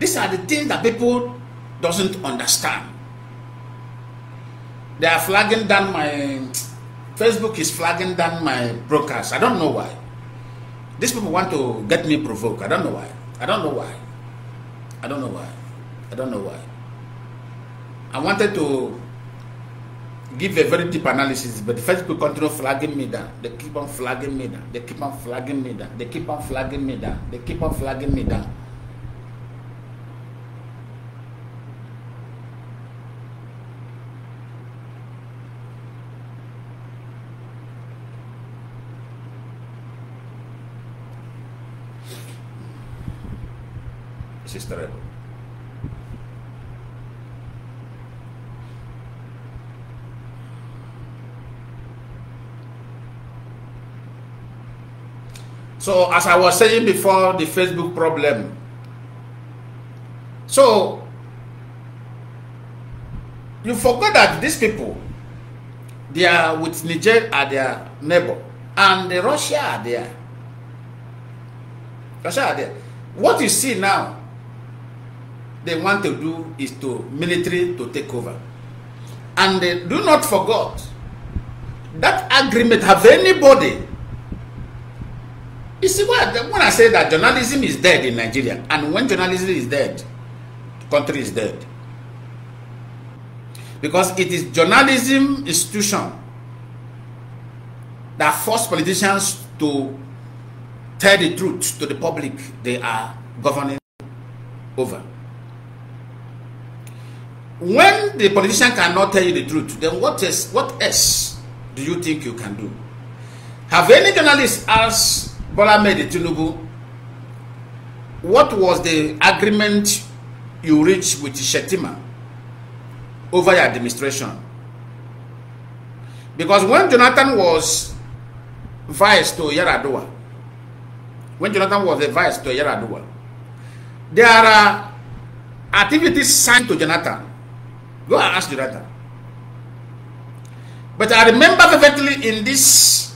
These are the things that people doesn't understand. They are flagging down my Facebook is flagging down my broadcast. I don't know why. These people want to get me provoked. I don't know why. I don't know why. I don't know why. I don't know why. I wanted to give a very deep analysis, but Facebook continue flagging me down. They keep on flagging me down. They keep on flagging me down. They keep on flagging me down. They keep on flagging me down. So as I was saying before, the Facebook problem. So you forgot that these people, they are with Niger uh, are their neighbor, and the Russia are there. Russia are there. What you see now, they want to do is to military to take over. And they do not forget that agreement. Have anybody You see, what, when I say that journalism is dead in Nigeria, and when journalism is dead, the country is dead. Because it is journalism institution that force politicians to tell the truth to the public they are governing over. When the politician cannot tell you the truth, then what else, what else do you think you can do? Have any journalist asked Bola Ahmed Tinubu, what was the agreement you reached with Shetima over your administration? Because when Jonathan was vice to Yaradua, when Jonathan was the vice to Yaradua, there are uh, activities signed to Jonathan. Go and ask Jonathan. But I remember vividly in this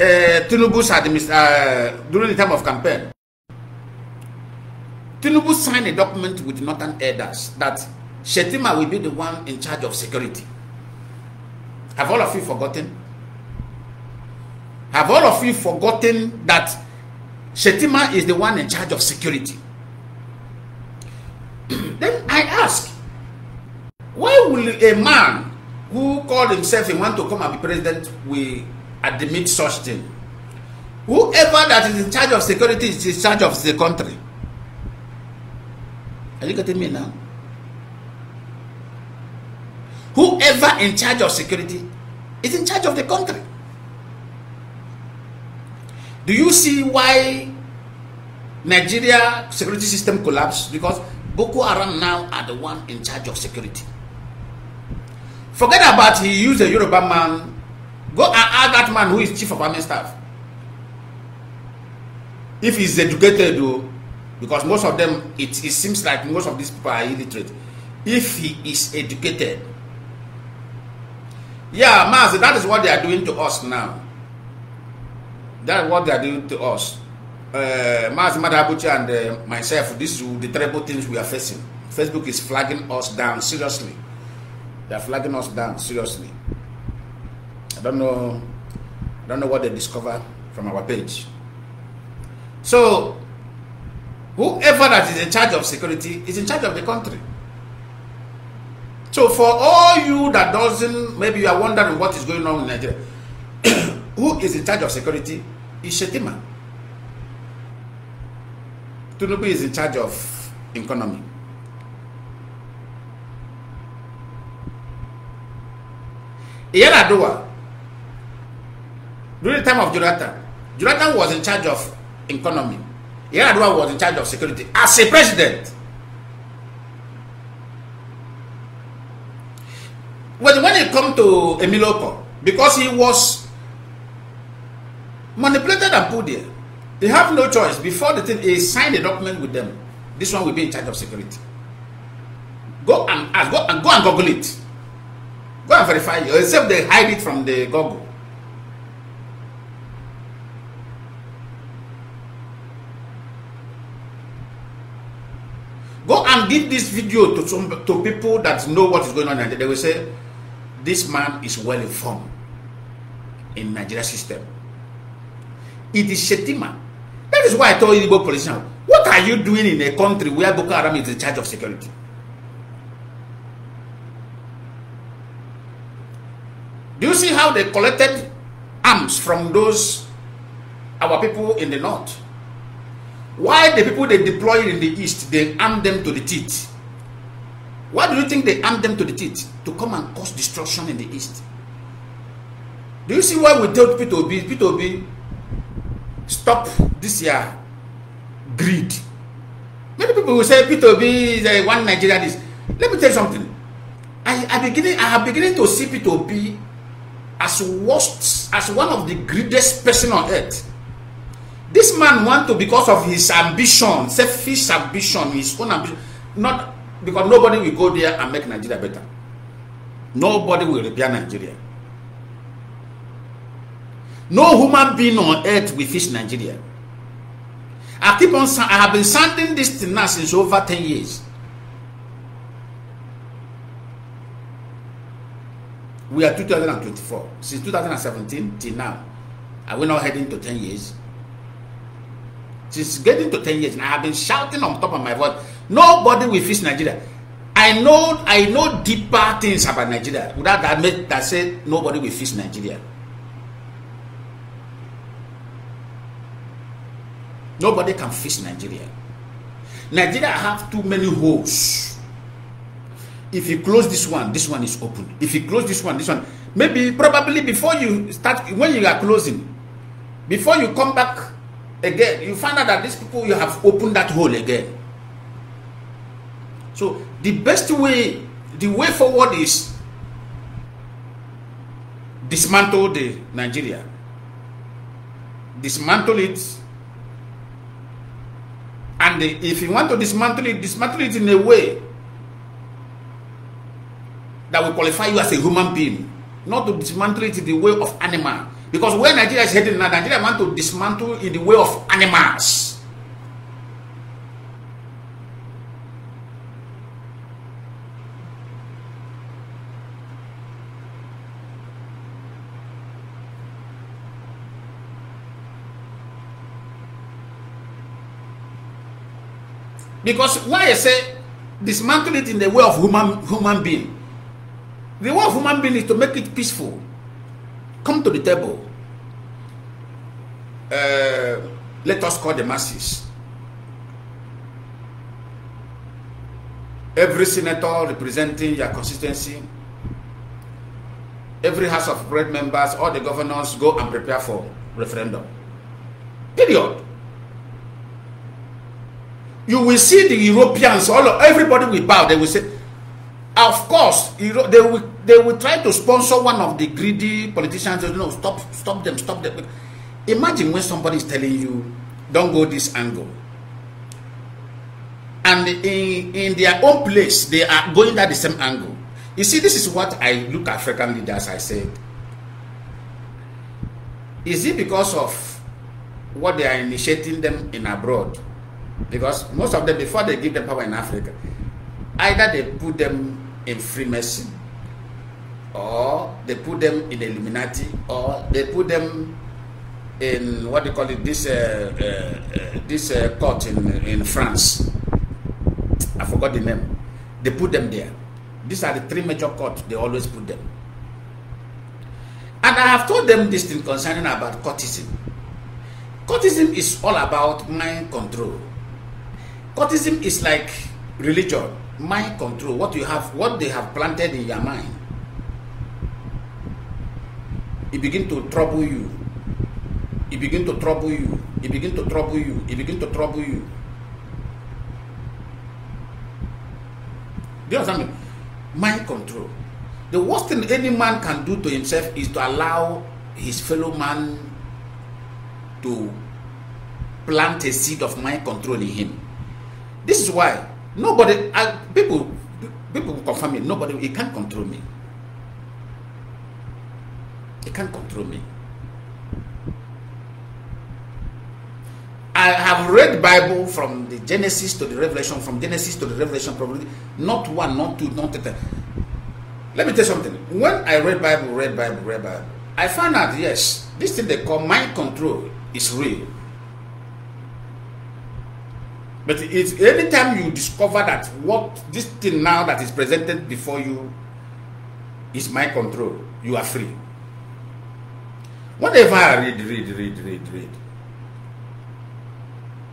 uh, eh, Tinubu's administ- uh, during the time of campaign, Tinubu signed a document with Northern Elders that Shetima will be the one in charge of security. Have all of you forgotten? Have all of you forgotten that Shetima is the one in charge of security? then I ask, why will a man who called himself a man to come and be president will admit such thing whoever that is in charge of security is in charge of the country are you getting me now whoever in charge of security is in charge of the country do you see why Nigeria security system collapsed because Boko Haram now are the one in charge of security forget about he used a Yoruba man Go and ask that man who is chief of army staff. If he's educated, though, because most of them, it, it seems like most of these people are illiterate. If he is educated, yeah, Master, that is what they are doing to us now. That is what they are doing to us. Uh, Master Madabuchi and uh, myself, this is the terrible things we are facing. Facebook is flagging us down seriously. They are flagging us down seriously. I don't know, I don't know what they discover from our page. So, whoever that is in charge of security is in charge of the country. So, for all you that doesn't, maybe you are wondering what is going on in Nigeria, who is in charge of security is Shetima. Tunubu is in charge of economy. Iyana During the time of Jonathan, Jonathan was in charge of economy. Yar'Adua was in charge of security as a president. But when it come to Emiloko, because he was manipulated and put there, they have no choice. Before the thing, he signed a document with them. This one will be in charge of security. Go and ask, uh, go and go and Google it. Go and verify it, except they hide it from the Google. Go and give this video to some to people that know what is going on and they will say, this man is well informed in Nigeria system. It is Shetima. That is why I told Igbo politician, what are you doing in a country where Boko Haram is in charge of security? Do you see how they collected arms from those our people in the north? Why the people they deploy in the east, they arm them to the teeth? Why do you think they arm them to the teeth? To come and cause destruction in the east. Do you see why we told Peter Obi, Peter Obi, stop this year greed. Many people will say Peter Obi is a one Nigerian is. Let me tell you something. I, I beginning I am beginning to see Peter Obi as worst as one of the greediest person on earth this man want to because of his ambition selfish ambition his own ambition not because nobody will go there and make nigeria better nobody will repair nigeria no human being on earth will fix nigeria i keep on i have been sending this thing now since over ten years we are two thousand and twenty-four since two thousand and seventeen till now are we now heading to ten years since getting to 10 years and I have been shouting on top of my voice. Nobody will fix Nigeria. I know I know deeper things about Nigeria without that make that said nobody will fix Nigeria. Nobody can fix Nigeria. Nigeria have too many holes. If you close this one, this one is open. If you close this one, this one. Maybe, probably before you start, when you are closing, before you come back again you find out that these people you have opened that hole again so the best way the way forward is dismantle the nigeria dismantle it and if you want to dismantle it dismantle it in a way that will qualify you as a human being not to dismantle it the way of animal Because where Nigeria is heading now, Nigeria want to dismantle in the way of animals. Because why I say dismantle it in the way of human human being. The way of human being is to make it peaceful. Come to the table. Uh, let us call the masses. Every senator representing your constituency, every House of Great members, all the governors go and prepare for referendum. Period. You will see the Europeans, all of, everybody will bow. They will say, of course you know, they will they will try to sponsor one of the greedy politicians you know stop stop them stop them imagine when somebody is telling you don't go this angle and in in their own place they are going at the same angle you see this is what i look at african leaders i said is it because of what they are initiating them in abroad because most of them before they give them power in africa either they put them in Freemason, or they put them in Illuminati, or they put them in what they call it this uh, uh, uh, this uh, court in in France. I forgot the name. They put them there. These are the three major courts they always put them. And I have told them this thing concerning about courtism. Courtism is all about mind control. Courtism is like religion mind control what you have what they have planted in your mind it begin to trouble you it begin to trouble you it begin to trouble you it begin to trouble you do you understand me mind control the worst thing any man can do to himself is to allow his fellow man to plant a seed of mind control in him this is why Nobody, I, people, people confirm me. Nobody, he can't control me. He can't control me. I have read Bible from the Genesis to the Revelation, from Genesis to the Revelation, probably not one, not two, not ten. Let me tell you something. When I read Bible, read Bible, read Bible, I found out yes, this thing they call mind control is real. But it's anytime you discover that what this thing now that is presented before you is my control, you are free. Whatever I read, read, read, read, read.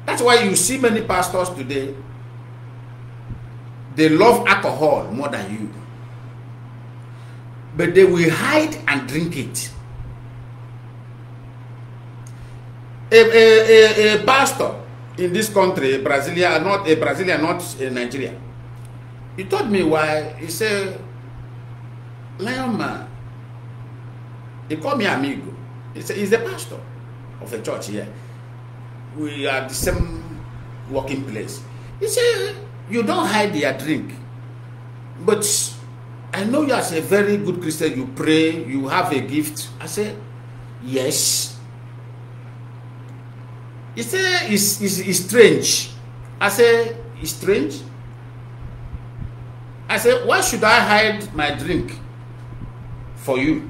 That's why you see many pastors today, they love alcohol more than you. But they will hide and drink it. A, a, a, a pastor in this country, Brazilian, not a Brazilian, not a Nigerian. He told me why. He said, Lion man, he called me amigo. He said, he's the pastor of a church here. We are the same working place. He said, you don't hide your drink. But I know you as a very good Christian, you pray, you have a gift. I said, yes, He say it's, it's, it's strange. I say it's strange. I say why should I hide my drink for you?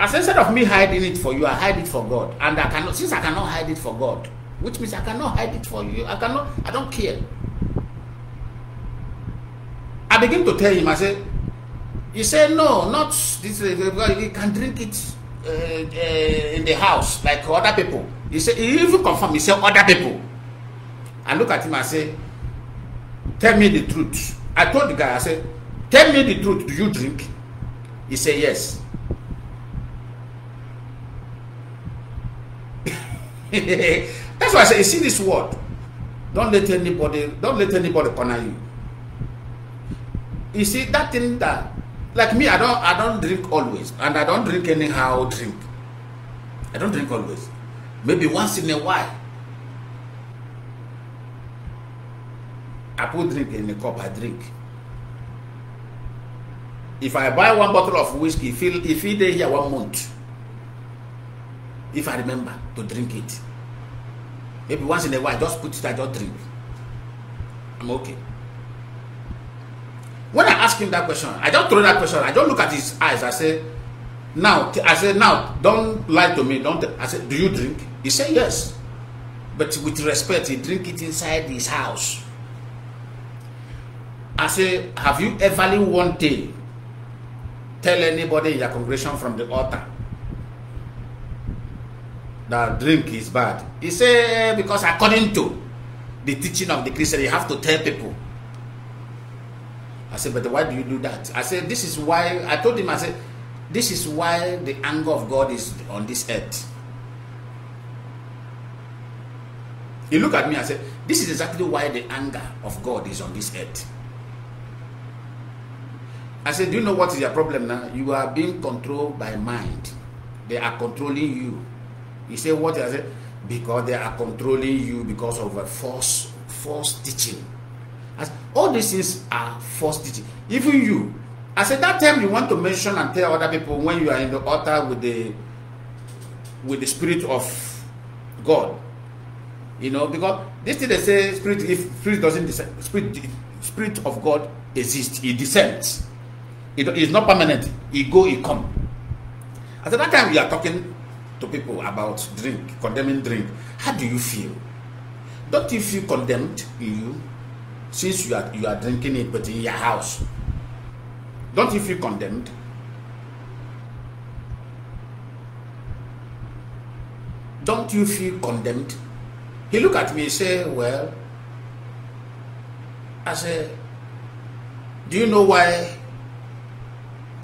As instead of me hiding it for you, I hide it for God. And I cannot since I cannot hide it for God, which means I cannot hide it for you. I cannot, I don't care. I begin to tell him, I say, he said, no, not this, He can drink it uh, uh, in the house like other people he say he even confirm he say other people i look at him and say tell me the truth i told the guy i said, tell me the truth do you drink he say yes that's why i say you see this word Don't let anybody Don't let anybody corner you you see that thing that like me i don i don drink always and i don drink anyhow drink i don drink always maybe once in a while i put drink in a cup i drink if i buy one bottle of whiskey if it if he dey here one month if i remember to drink it maybe once in a while i just put it i just drink i'm okay when I ask him that question, I just throw that question. I just look at his eyes. I say, now, I say, now, don't lie to me. Don't. I say, do you drink? He say, yes, but with respect, he drink it inside his house. I say, have you ever in one day tell anybody in your congregation from the altar that drink is bad? He say, because according to the teaching of the Christian, you have to tell people I said, but why do you do that? I said, this is why, I told him, I said, this is why the anger of God is on this earth. He looked at me and said, this is exactly why the anger of God is on this earth. I said, do you know what is your problem now? You are being controlled by mind. They are controlling you. He said, what? I said, because they are controlling you because of a false, false teaching as all these things are teaching. Even you, as at that time you want to mention and tell other people when you are in the altar with the with the spirit of God. You know, because this thing they say spirit if spirit doesn't descend, spirit spirit of God exists, it descends. It is not permanent. It go, it come. At that time we are talking to people about drink, condemning drink. How do you feel? Don't you feel condemned in you? since you are you are drinking it but in your house don't you feel condemned don't you feel condemned he look at me and say, well i say, do you know why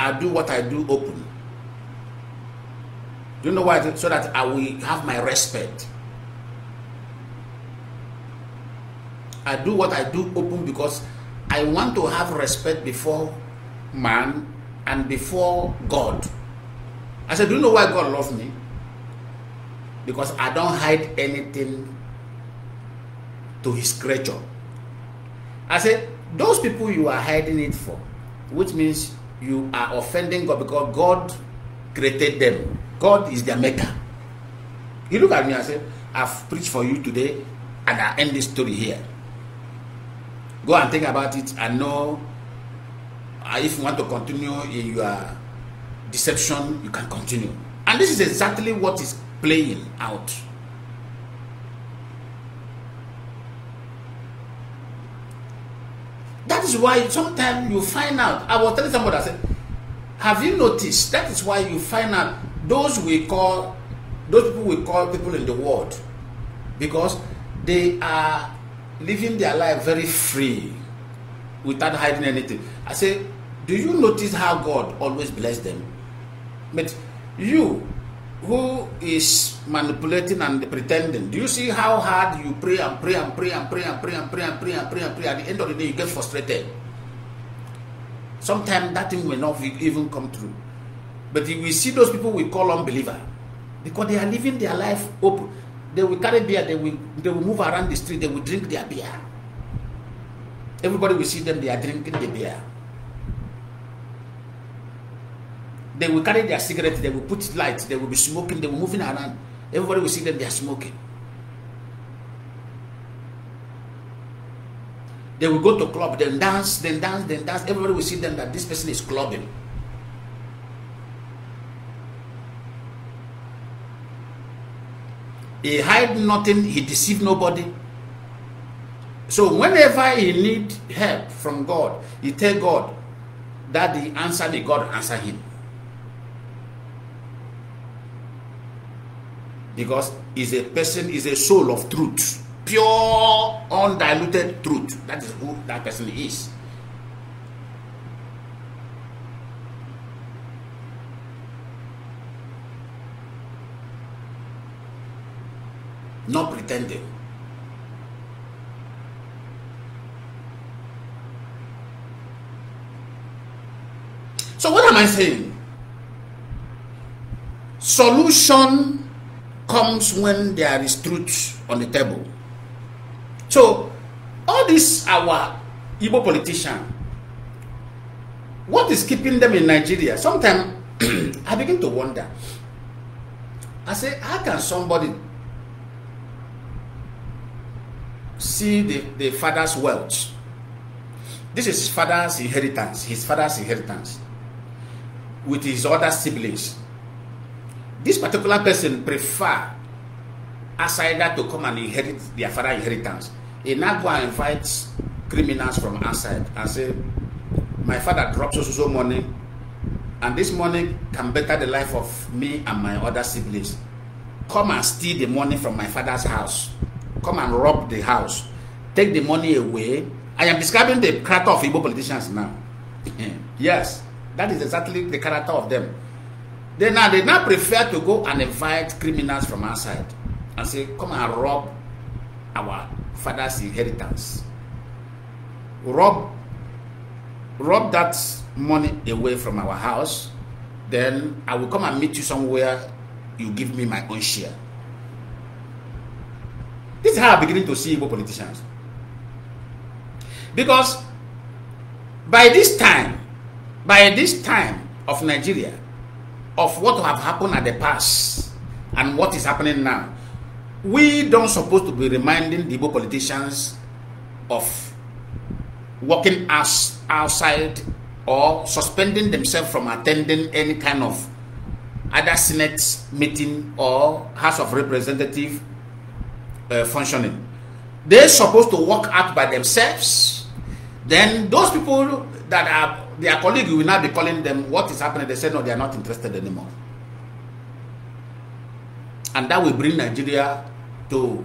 i do what i do open do you know why so that i will have my respect I do what I do open because I want to have respect before man and before God. I said, Do you know why God loves me? Because I don't hide anything to his creature. I said, Those people you are hiding it for, which means you are offending God because God created them. God is their maker. He looked at me and said, I've preached for you today and I end this story here. go and think about it and know uh, if you want to continue in your deception you can continue and this is exactly what is playing out that is why sometimes you find out i was telling somebody i said have you noticed that is why you find out those we call those people we call people in the world because they are living their life very free without hiding anything. I say, do you notice how God always bless them? But you who is manipulating and pretending, do you see how hard you pray and pray and pray and pray and pray and pray and pray and pray and pray? At the end of the day, you get frustrated. Sometimes that thing will not even come true. But we see those people we call unbeliever because they are living their life open. They will carry beer, they will, they will move around the street, they will drink their beer. Everybody will see them, they are drinking the beer. They will carry their cigarettes, they will put lights, they will be smoking, they will moving around. Everybody will see them, they are smoking. They will go to club, then dance, then dance, then dance. Everybody will see them that this person is clubbing. He hide nothing, he deceive nobody. So whenever he need help from God, he tell God that the answer the God answer him. Because is a person is a soul of truth, pure, undiluted truth. That is who that person is. not pretending. So what am I saying? Solution comes when there is truth on the table. So all this our Igbo politician, what is keeping them in Nigeria? Sometimes I begin to wonder. I say, how can somebody see the, the father's wealth. This is father's inheritance, his father's inheritance with his other siblings. This particular person prefer outsider to come and inherit their father's inheritance. He now go and invite criminals from outside and say, my father drops us so money and this money can better the life of me and my other siblings. Come and steal the money from my father's house come and rob the house, take the money away. I am describing the character of Igbo politicians now. yes, that is exactly the character of them. They now they now prefer to go and invite criminals from outside and say, come and rob our father's inheritance. Rob rob that money away from our house, then I will come and meet you somewhere. You give me my own share. This is how I'm beginning to see Igbo politicians. Because by this time, by this time of Nigeria, of what have happened at the past and what is happening now, we don't supposed to be reminding the Igbo politicians of working as outside or suspending themselves from attending any kind of other Senate meeting or House of Representative uh, functioning. They're supposed to work out by themselves. Then those people that are their colleague will now be calling them what is happening. They say no, they are not interested anymore. And that will bring Nigeria to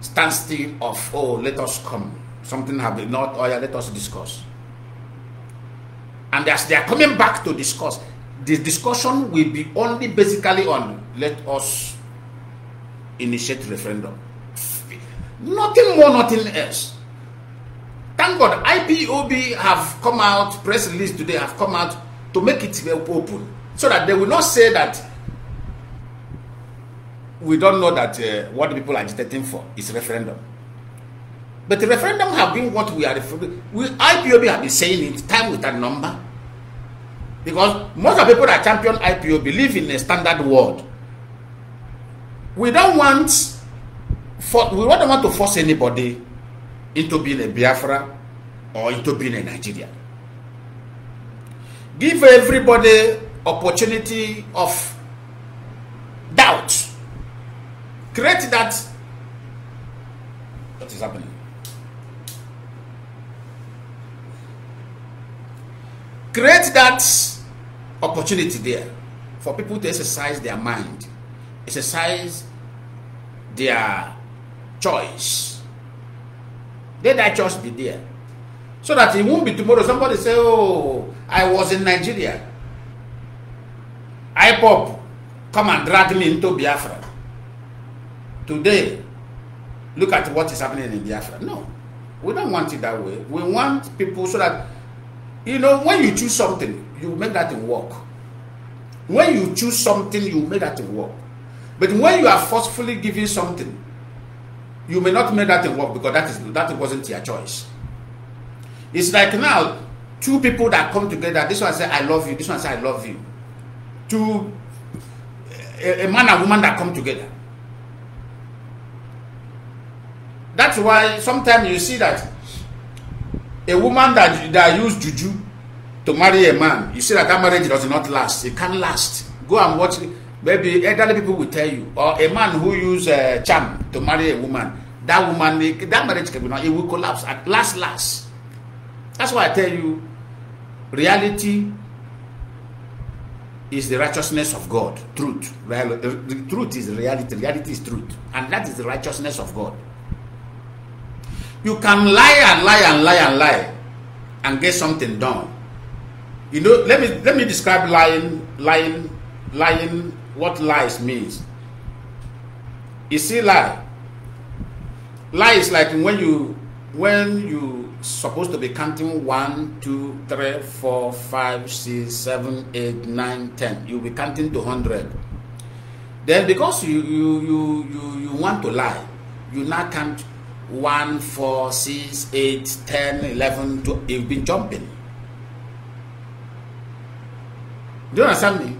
standstill of oh let us come. Something have been not oh yeah, let us discuss. And as they are coming back to discuss, the discussion will be only basically on let us initiate referendum. Nothing more, nothing else. Thank God, IPOB have come out, press release today have come out to make it open so that they will not say that we don't know that uh, what people are agitating for is referendum. But the referendum have been what we are referring. We IPOB have been saying it time with that number. Because most of the people that champion IPO believe in a standard world. We don't want for, we don't want to force anybody into being a Biafra or into being a Nigerian. Give everybody opportunity of doubt. Create that. What is happening? Create that opportunity there for people to exercise their mind, exercise their choice. I that be there. So that it won't be tomorrow. Somebody say, Oh, I was in Nigeria. I pop, come and drag me into Biafra. Today, look at what is happening in Biafra. No, we don't want it that way. We want people so that, you know, when you choose something, you make that thing work. When you choose something, you make that thing work. But when you are forcefully giving something, you may not make that thing work because that is that wasn't your choice. It's like now two people that come together. This one say I love you. This one say I love you. Two a, a man and woman that come together. That's why sometimes you see that a woman that that used juju to marry a man, you see that that marriage does not last. It can't last. Go and watch. It maybe elderly people will tell you, or a man who use a uh, charm to marry a woman, that woman, that marriage can be not, it will collapse at last, last. That's why I tell you, reality is the righteousness of God, truth. Real, uh, the truth is reality, reality is truth, and that is the righteousness of God. You can lie and lie and lie and lie and get something done. You know, let me let me describe lying, lying, lying what lies means. You see lie. Lie is like when you when you supposed to be counting one, two, three, four, five, six, seven, eight, nine, ten. You'll be counting to hundred. Then because you you you you, you want to lie, you now count one, four, six, eight, ten, eleven, twelve. You've been jumping. Do you understand me?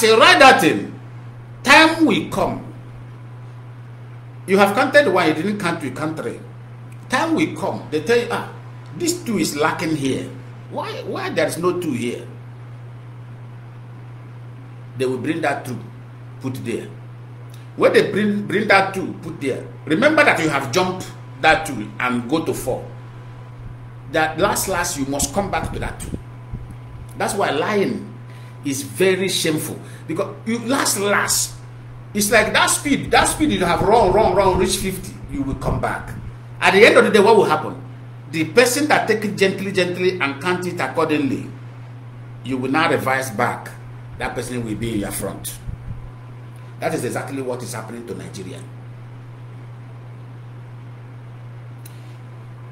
As a rider time will come. You have counted one, you didn't count two, country. Time will come. They tell you, ah, this two is lacking here. Why why there is no two here? They will bring that two, put there. When they bring bring that two, put there. Remember that you have jumped that two and go to four. That last last you must come back to that two. That's why lying is very shameful because you last last it's like that speed that speed you have run run run reach 50 you will come back at the end of the day what will happen the person that take it gently gently and count it accordingly you will now revise back that person will be in your front that is exactly what is happening to nigeria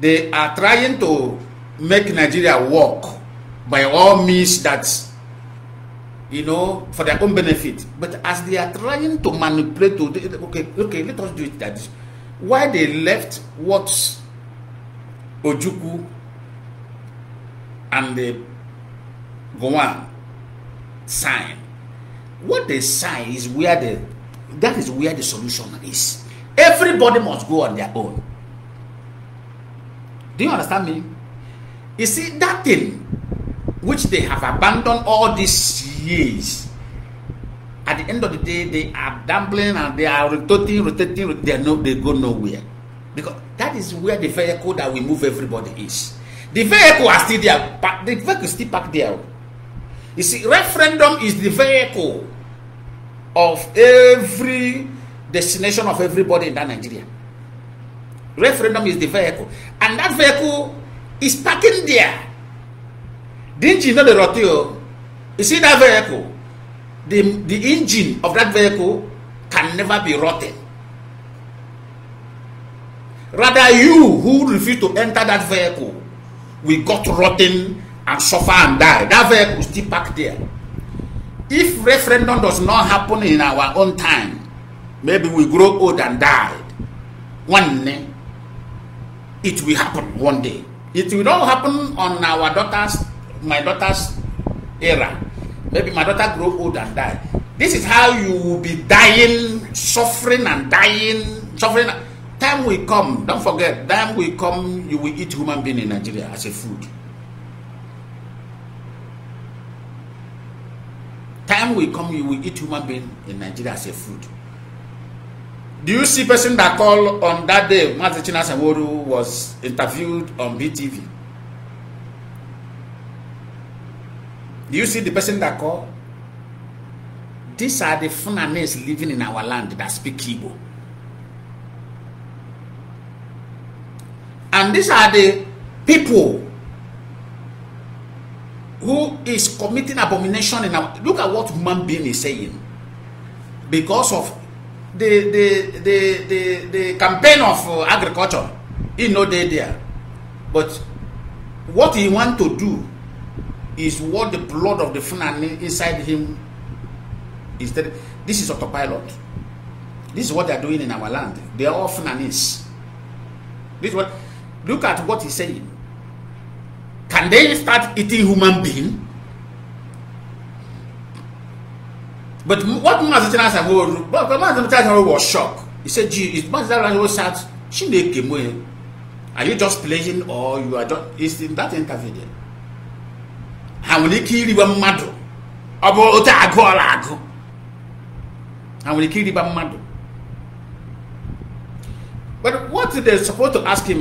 they are trying to make nigeria work by all means that you know, for their own benefit. But as they are trying to manipulate, to, okay, okay, let us do it that. Why they left what Ojuku and the Gowan sign. What they sign is where the that is where the solution is. Everybody must go on their own. Do you understand me? You see, that thing which they have abandoned all these years, at the end of the day, they are dumbling and they are rotating, rotating, they, no, they go nowhere. Because that is where the vehicle that we move everybody is. The vehicle are still there, the vehicle is still parked there. You see, referendum is the vehicle of every destination of everybody in that Nigeria. Referendum is the vehicle, and that vehicle is parking there. the engine no dey rot o you see that vehicle the the engine of that vehicle can never be rotten rather you who refuse to enter that vehicle will got rotten and suffer and die that vehicle still park there if referendum does not happen in our own time maybe we grow old and die one day it will happen one day it will not happen on our daughters my daughter's era maybe my daughter grow old and die this is how you will be dying suffering and dying suffering time will come don't forget time will come you will eat human being in nigeria as a food time will come you will eat human being in nigeria as a food do you see person that call on that day mazi chinasa woru was interviewed on btv Do you see the person that call? These are the Funanes living in our land that speak Igbo. And these are the people who is committing abomination in our look at what human being is saying because of the the the the, the campaign of uh, agriculture he no dey there but what he want to do is what the blood of the Fulani inside him is that this is autopilot. This is what they are doing in our land. They are all Fulanis. This what look at what he's saying. Can they start eating human being? But what Master said, oh, but Master oh, was shocked. He said, "Gee, is Master Chinasawo oh, sat? She make him Are you just playing, or you are just?" It's in that interview there. ha nwere ike iriwe mmadụ ọ bụ otu agụ ọla agụ ha nwere ike iriba mmadụ but what they supposed to ask him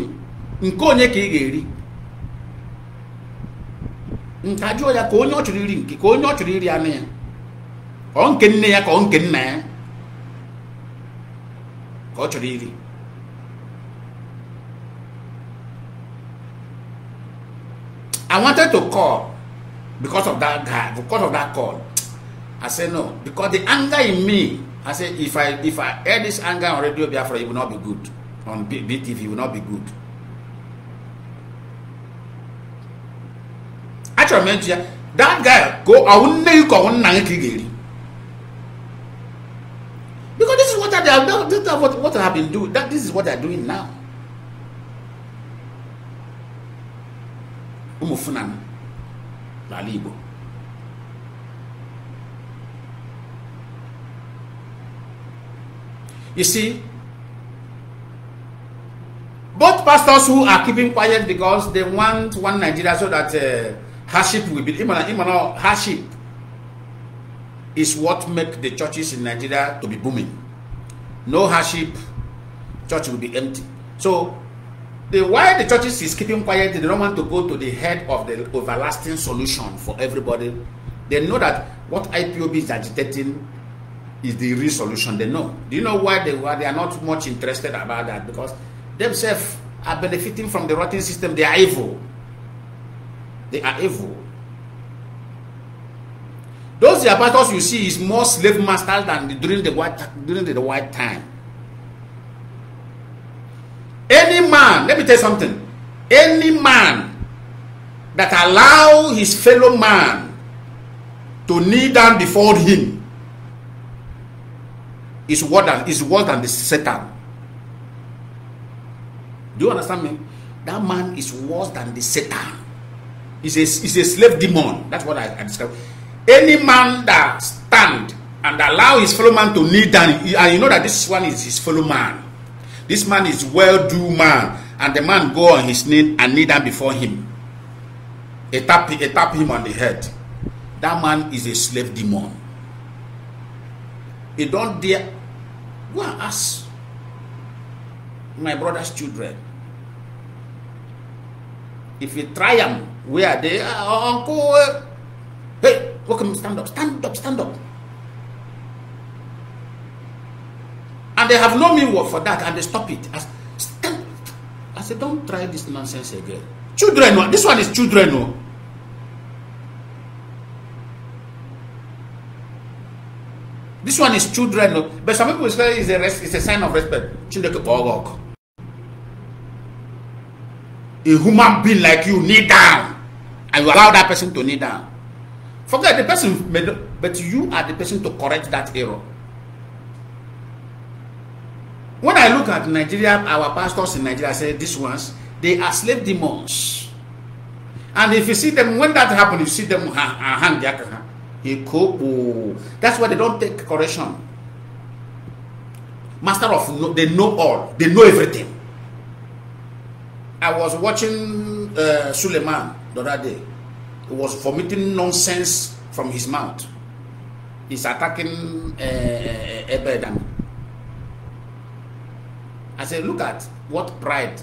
nke onye ka ị ga-eri nke jụọ ya ka onye ọ chọrọ iri nke ka onye ọ chọrọ iri anụ ya ka ọ nke nne ya ka ọ nke nna ya ka ọ chọrọ iri I wanted to call because of that guy, because of that call. I say no, because the anger in me, I say if I if I air this anger on Radio Biafra, it will not be good. On BTV, it will not be good. Actually, mention that guy go because this is what I have this is what, what I have been doing. That this is what they're doing now. Umufunani n'ala Igbo you see both pastors who are keeping quiet because they want one Nigeria so that uh, hardship will be imana imana hardship is what make the churches in Nigeria to be booming no hardship church will be empty so the why the churches is keeping quiet they don't want to go to the head of the everlasting solution for everybody they know that what ipob is agitating is the real solution they know do you know why they why they are not much interested about that because themselves are benefiting from the rotten system they are evil they are evil those the apostles you see is more slave masters than the, during the white during the white time Any man, let me tell you something. Any man that allow his fellow man to kneel down before him is worse than is worse than the Satan. Do you understand me? That man is worse than the Satan. He's a, he's a slave demon. That's what I, I describe. Any man that stand and allow his fellow man to kneel down, and you know that this one is his fellow man This man is well-do man. And the man go on his knee and kneel down before him. A tap, a tap him on the head. That man is a slave demon. He don't dare. Go and ask my brother's children. If you try them, where are they? Uh, uncle, eh. hey, welcome, stand up, stand up, stand up. And they have no meanwhile for that and they stop it. I, said, don't try this nonsense again. Children, this one is children. No. This one is children. No. But some people say it's a, res- it's a sign of respect. Children, oh, a human being like you kneel down and you allow that person to kneel down forget the person but you are the person to correct that error when I look at Nigeria, our pastors in Nigeria, say these ones, they are slave demons. And if you see them, when that happens, you see them hang their That's why they don't take correction. Master of, they know all, they know everything. I was watching uh, Suleiman the other day. He was vomiting nonsense from his mouth. He's attacking uh, Ebedam. I said, look at what pride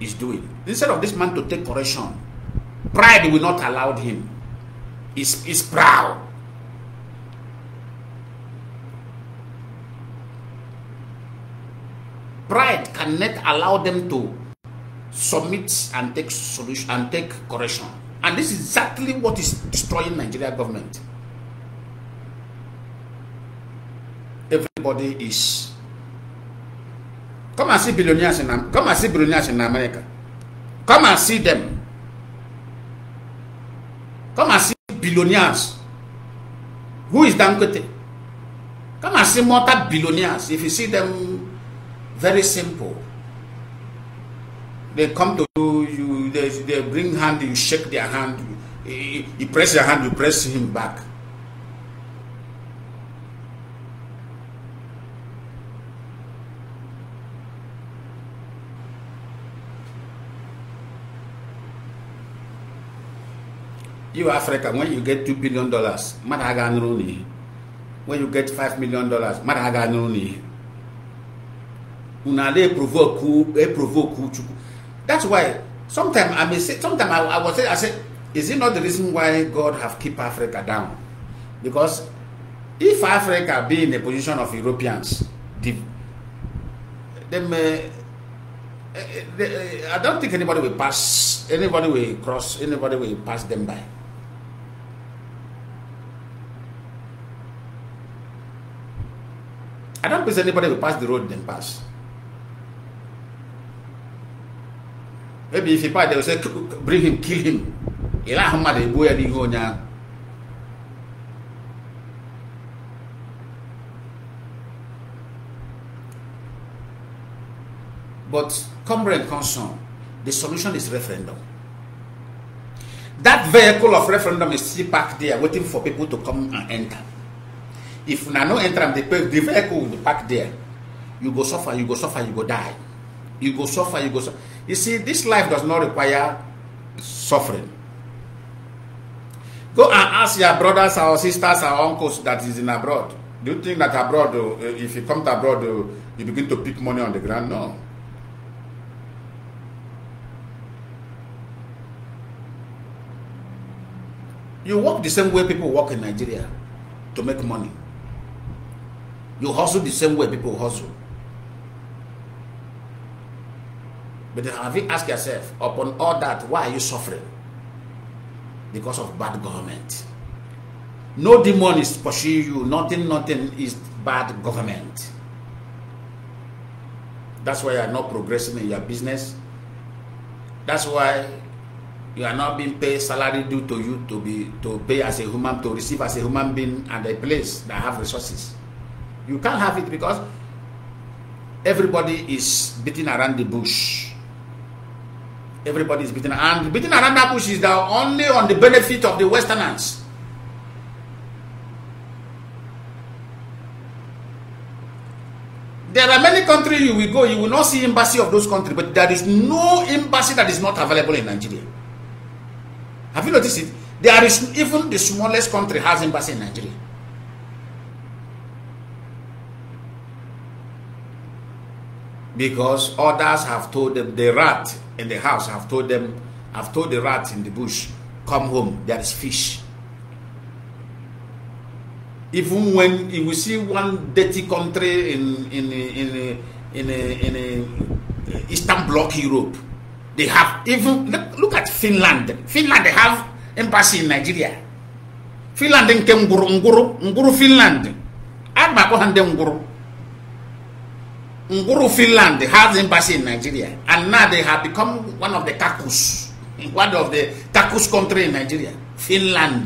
is doing. Instead of this man to take correction, pride will not allow him. He's, he's proud. Pride cannot allow them to submit and take solution and take correction. And this is exactly what is destroying Nigeria government. Everybody is Come and see billionaires in come and see billionaires in America. Come and see them. Come and see billionaires. Who is Dangote? Come and see more billionaires. If you see them, very simple. They come to you, they, they bring hand, you shake their hand, you, you press their hand, you press him back. You Africa, when you get two billion dollars, madaga only. When you get five million dollars, madaga nuni. provoke, That's why sometimes I may say, sometimes I, I was say, I say, is it not the reason why God have keep Africa down? Because if Africa be in the position of Europeans, them, uh, eh, eh, eh, I don't think anybody will pass, anybody will cross, anybody will pass them by. I don't believe anybody will pass the road then pass. Maybe if he passed, they will say, bring him, kill him. Eh, but comrade concern, the solution is referendum. That vehicle of referendum is still parked there waiting for people to come and enter if na no enter am the vehicle will park there you go suffer you go suffer you go die you go suffer you go suffer you see this life does not require suffering go and ask your brothers or sisters or uncles that is in abroad do you think that abroad oh, eh, if you come to abroad oh, you begin to pick money on the ground no you work the same way people work in nigeria to make money You hustle the same way people hustle. But then have you asked yourself, upon all that, why are you suffering? Because of bad government. No demon is pursuing you. Nothing, nothing is bad government. That's why you are not progressing in your business. That's why you are not being paid salary due to you to be to pay as a human to receive as a human being at a place that have resources. You can't have it because everybody is beating around the bush. Everybody is beating and beating around that bush is now only on the benefit of the Westerners. There are many countries you will go, you will not see embassy of those countries, but there is no embassy that is not available in Nigeria. Have you noticed it? There is even the smallest country has embassy in Nigeria. because others have told them the rat in the house have told them have told the rat in the bush come home there is fish even when you see one dirty country in in in in, in, in, in eastern bloc europe they have even look, look at finland finland they have embassy in nigeria finland nke ngwuru ngwuru ngwuru finland agba akpọ Nguru Finland has embassy in Nigeria, and now they have become one of the kakus, one of the kakus country in Nigeria, Finland.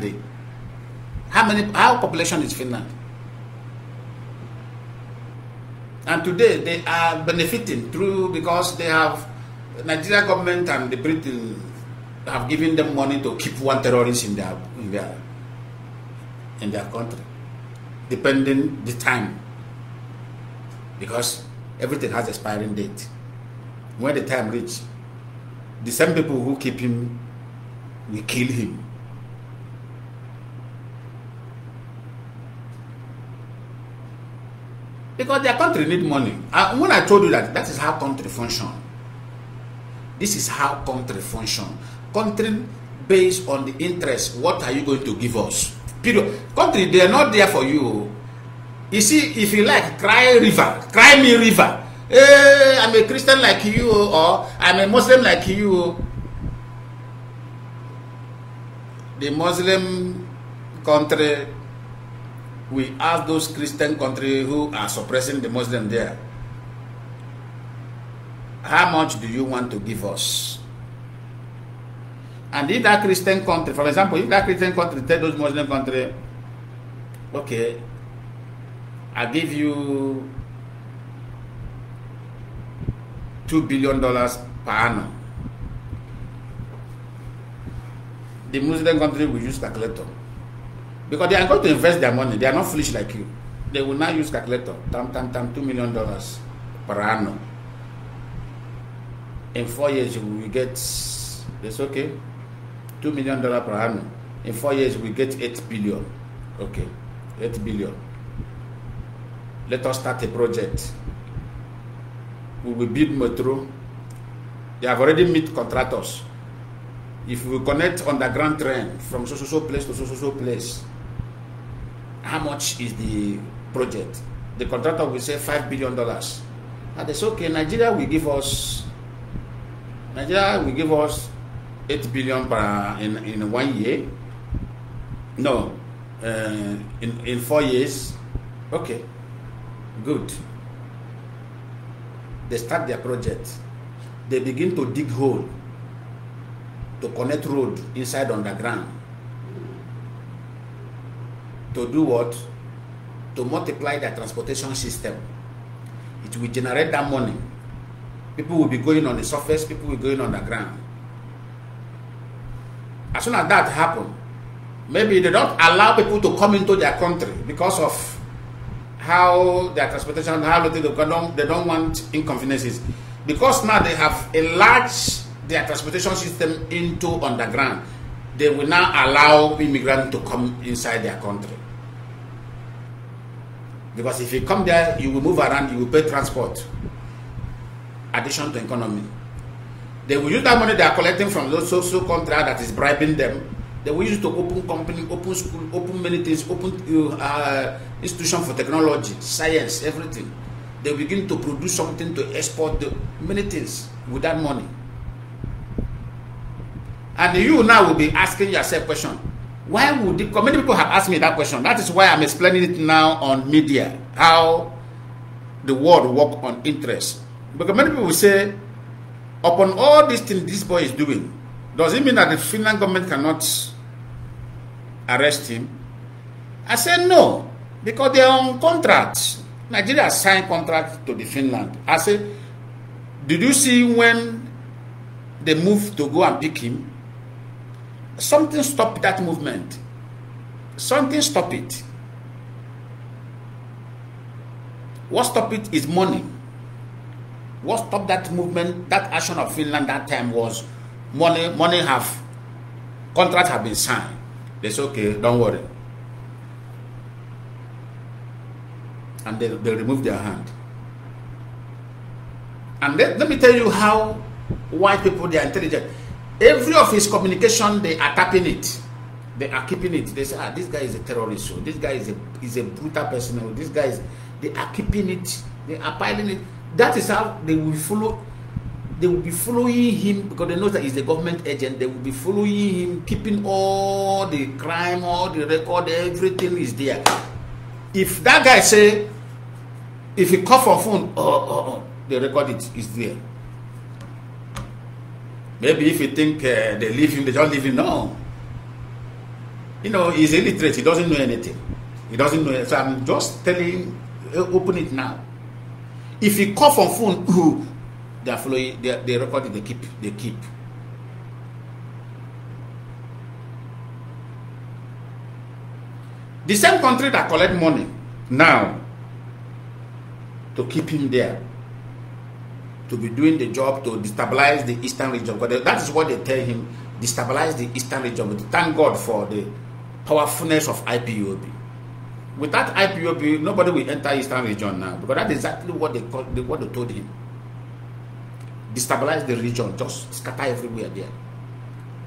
How many? How population is Finland? And today they are benefiting through because they have Nigeria government and the Britain have given them money to keep one terrorist in their in their in their country, depending the time because everything has expiring date. When the time reach, the same people who keep him will kill him. Because their country need money. when I told you that, that is how country function. This is how country function. Country based on the interest. What are you going to give us? Period. Country, they are not there for you. You see, if you like, cry river, cry me river. Hey, eh, I'm a Christian like you, or I'm a Muslim like you. The Muslim country, we ask those Christian country who are suppressing the Muslim there, how much do you want to give us? And if that Christian country, for example, if that Christian country tell those Muslim country, okay, I give you two billion dollars per annum. The Muslim country will use calculator. Because they are going to invest their money. They are not foolish like you. They will now use calculator. Tam, tam, tam, two million dollars per annum. In four years, we get, that's okay, Two million per annum. In four years, we get eight billion. Okay, eight billion. let us start a project. We will build metro. They have already met contractors. If we connect underground train from so so so place to so so so place, how much is the project? The contractor will say five billion dollars. And they say, okay, Nigeria will give us Nigeria will give us eight billion per in, in one year. No, uh, in in four years. Okay, Good. They start their project. They begin to dig hole to connect road inside underground. To do what? To multiply their transportation system. It will generate that money. People will be going on the surface, people will be going underground. As soon as that happens, maybe they don't allow people to come into their country because of how their transportation, how they don't, they don't want inconveniences. Because now they have enlarged their transportation system into underground, they will now allow immigrants to come inside their country. Because if you come there, you will move around, you will pay transport, addition to economy. They will use that money they are collecting from those social contract that is bribing them they were used to open company, open school, open many things, open uh, uh institution for technology, science, everything. They begin to produce something to export the, many things with that money. And you now will be asking yourself question. Why would the, many people have asked me that question? That is why I'm explaining it now on media, how the world work on interest. Because many people say, upon all these things this boy is doing, does it mean that the Finland government cannot arrest him? I said, no, because they're on contract. Nigeria signed contract to the Finland. I said, did you see when they moved to go and pick him? Something stopped that movement. Something stopped it. What stopped it is money. What stopped that movement, that action of Finland that time was money, money have, contract have been signed. They say, okay, don't worry. And they, they remove their hand. And let, let me tell you how white people, they are intelligent. Every of his communication, they are tapping it. They are keeping it. They say, ah, this guy is a terrorist. So this guy is a, is a brutal person. This guy is, they are keeping it. They are piling it. That is how they will follow they will be following him because they know that he's a government agent. They will be following him, keeping all the crime, all the record, everything is there. If that guy say, if he call for phone, oh, oh, oh, record is is there. Maybe if you think uh, they leave him, they don't leave him. No. You know, he's illiterate. He doesn't know anything. He doesn't know. So I'm just telling, uh, open it now. If he call for phone, they are following they, they record it, they keep they keep the same country that collect money now to keep him there to be doing the job to destabilize the eastern region because that is what they tell him destabilize the eastern region but thank god for the powerfulness of ipob without ipob nobody will enter eastern region now because that's exactly what they, what they told him destabilize the region, just scatter everywhere there.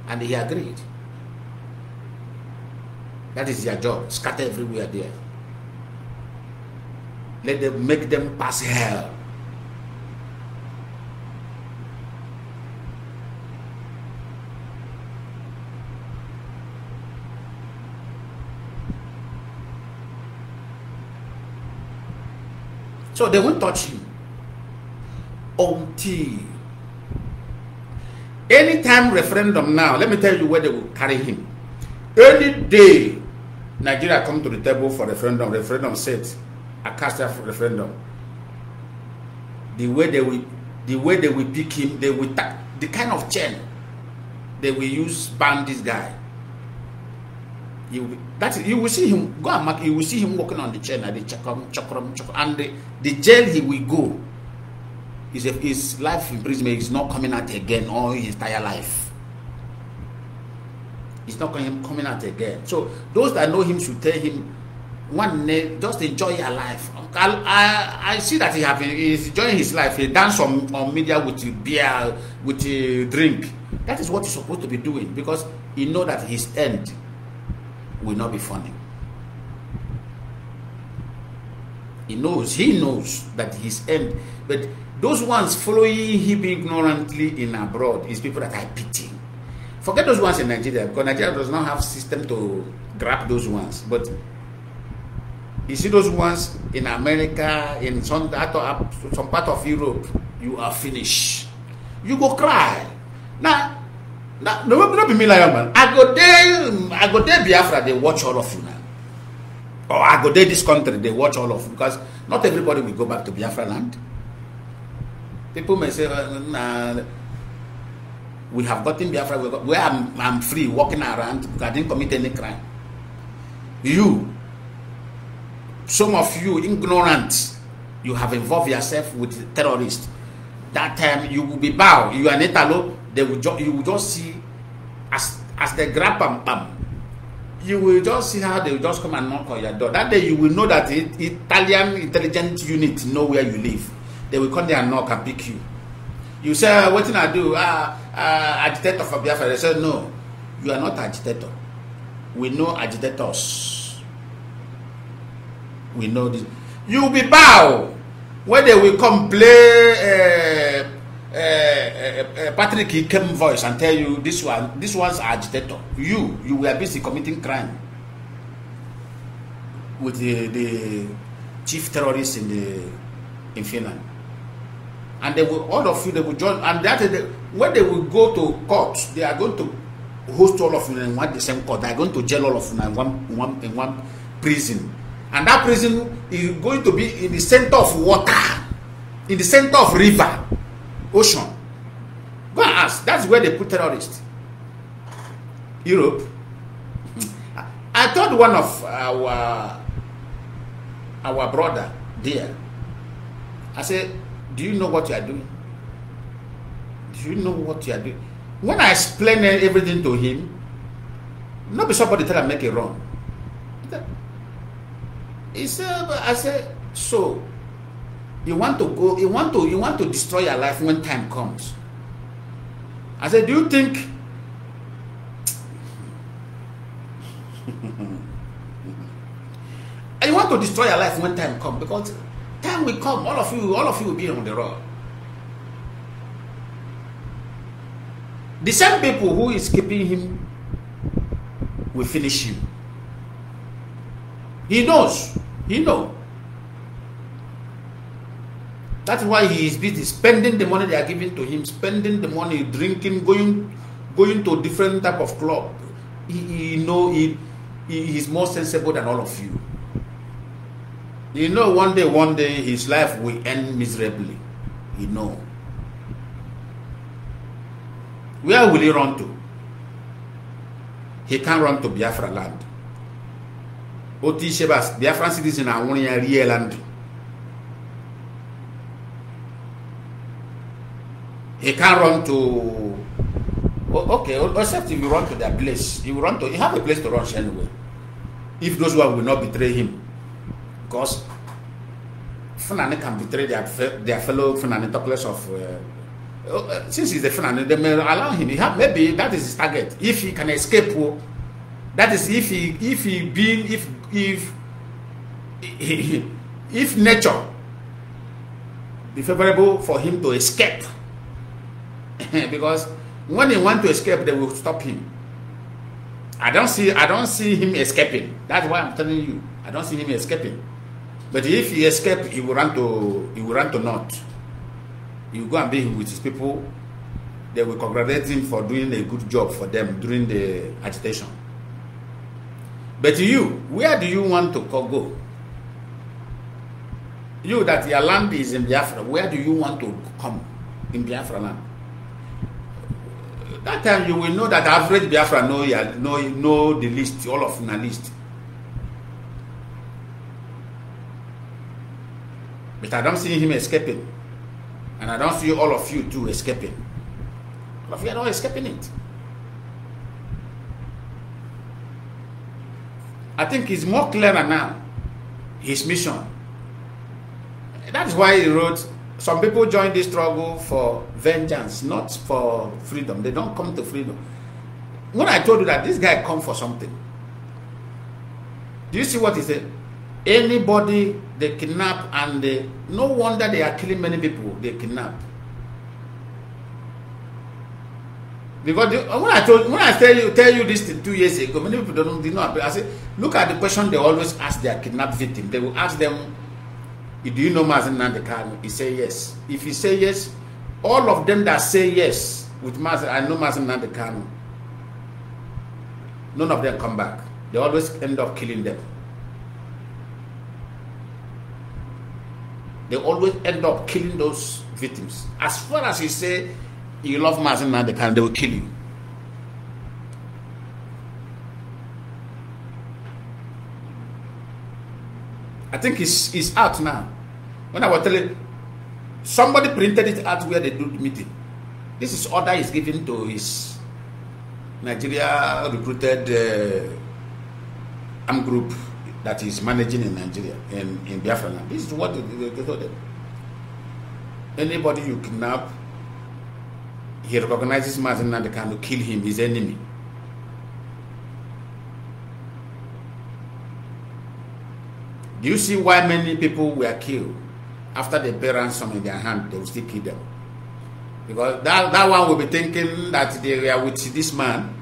And he agreed. That is their job, scatter everywhere there. Let them make them pass hell. So they won't touch you until Anytime referendum now, let me tell you where they will carry him. Any day Nigeria come to the table for referendum, referendum says, I cast a referendum. The way they will the way they will pick him, they will the kind of chain they will use ban this guy. You will, that is, you will see him go and mark. You will see him walking on the chain at the chakram chakram chakram, and the, the jail he will go his, his life imprisonment is not coming out again all his entire life. It's not coming out again. So those that know him should tell him, one day, just enjoy your life. I, I, I see that he have he's enjoying his life. He dance on, on media with beer, with drink. That is what he's supposed to be doing because he know that his end will not be funny. He knows, he knows that his end, but those ones following him ignorantly in abroad is people that I pity. Forget those ones in Nigeria because Nigeria does not have system to grab those ones. But you see those ones in America, in some, some part of Europe, you are finished. You go cry. Now, now no, no be me like man. I go there, I go there Biafra, they watch all of you now. Or I go there this country, they watch all of you because not everybody will go back to Biafra land. People may say, nah, we have gotten Biafra, got, where I'm, I'm free, walking around, I didn't commit any crime. You, some of you ignorant, you have involved yourself with terrorists. That time you will be bow. You are netalo. They will you will just see as as they grab pam pam. You will just see how they will just come and knock on your door. That day you will know that it, Italian intelligence unit know where you live. they will come there and knock and pick you you say ah, "What wetin i do ah ah agitator for biafra they say no you are not agitator we know agitators we know this you be bow when they will come play uh, uh, uh, uh, patrick ikem voice and tell you this one this one's agitator you you were busy committing crime with the, the chief terrorist in the in finland and they will all of you they will join and that is the, when they will go to court they are going to host all of you in one the same court they are going to jail all of you in one in one in one prison and that prison is going to be in the center of water in the center of river ocean go and ask that's where they put terrorists europe i told one of our our brother there i said do you know what you are doing? Do you know what you are doing? When I explain everything to him, not be somebody tell him make it wrong. He said, I said, so you want to go, you want to, you want to destroy your life when time comes. I said, do you think? you want to destroy your life when time comes because Time will come, all of you, all of you will be on the road. The same people who is keeping him will finish him. He knows. He know. That's why he is busy spending the money they are giving to him, spending the money, drinking, going, going to different type of club. He, he know he, he is more sensible than all of you. You know, one day, one day, his life will end miserably. You know. Where will he run to? He can't run to Biafra land. Oti Shebas, Biafran citizen are one year real land. He can't run to. okay, except if you run to that place. If you run to, He have a place to run anyway. If those one will not betray him. Because Fulani can betray their, their fellow Fulani place of. Uh, oh, uh, since he's a Fulani, they may allow him. He have, maybe that is his target. If he can escape, oh, that is if he if he being if if if nature be favorable for him to escape because when he want to escape they will stop him i don't see i don't see him escaping that's why i'm telling you i don't see him escaping But if he escape, he will run to he will run to north. He will go and be with his people. They will congratulate him for doing a good job for them during the agitation. But you, where do you want to go? You that your land is in Biafra, where do you want to come in Biafra land? That time you will know that average Biafra know, know, know the list, all of the list. But I don't see him escaping. And I don't see all of you too escaping. All of you are not escaping it. I think he's more clearer now, his mission. That's why he wrote, some people join this struggle for vengeance, not for freedom. They don't come to freedom. When I told you that this guy come for something, do you see what he said? Anybody they kidnap and they, no wonder they are killing many people they kidnap. Because the, when I told when I tell you tell you this two years ago, many people don't did not. I say look at the question they always ask their kidnapped victim. They will ask them, "Do you know Mazen Nandekano?" He say yes. If he say yes, all of them that say yes with Mazen, I know Mazen Nandekano. None of them come back. They always end up killing them. they always end up killing those victims. As far as you say you love Mazin now, they can they will kill you. I think it's it's out now. When I was telling somebody printed it out where they do the meeting. This is order is given to his Nigeria recruited uh, armed group that is managing in Nigeria, in, in Biafra land. This is what they, they, they told them. Anybody you kidnap, he recognizes Martin and King to kill him, his enemy. Do you see why many people were killed? After they bear ransom in their hand, they will still kill them. Because that, that one will be thinking that they were with this man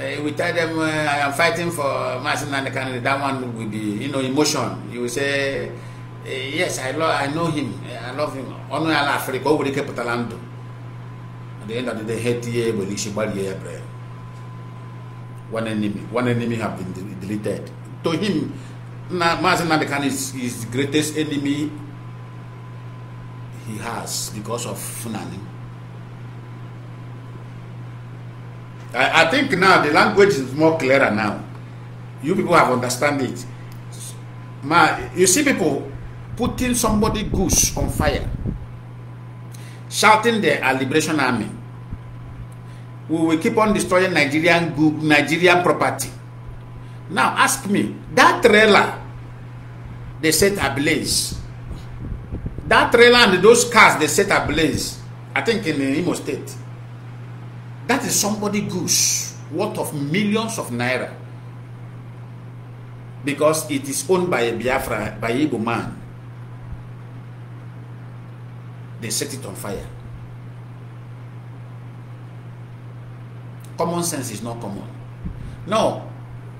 uh, we tell them uh, I am fighting for Masina Kennedy, that one will be, you know emotion. You will say, uh, yes, I love, I know him, eh, I love him. Onu ala Africa, we keep putalando. At the end of the day, hate ye, we lishi bari ye prayer. One enemy, one enemy have been deleted. To him, Masina Kennedy is his greatest enemy he has because of Funani. I, I think now the language is more clearer now. You people have understand it. My, you see people putting somebody goose on fire, shouting the are liberation army. We will keep on destroying Nigerian Nigerian property. Now ask me, that trailer they set ablaze. That trailer and those cars they set ablaze. I think in Imo State. That is somebody goose worth of millions of naira because it is owned by a Biafra, by Igbo man. They set it on fire. Common sense is not common. Now,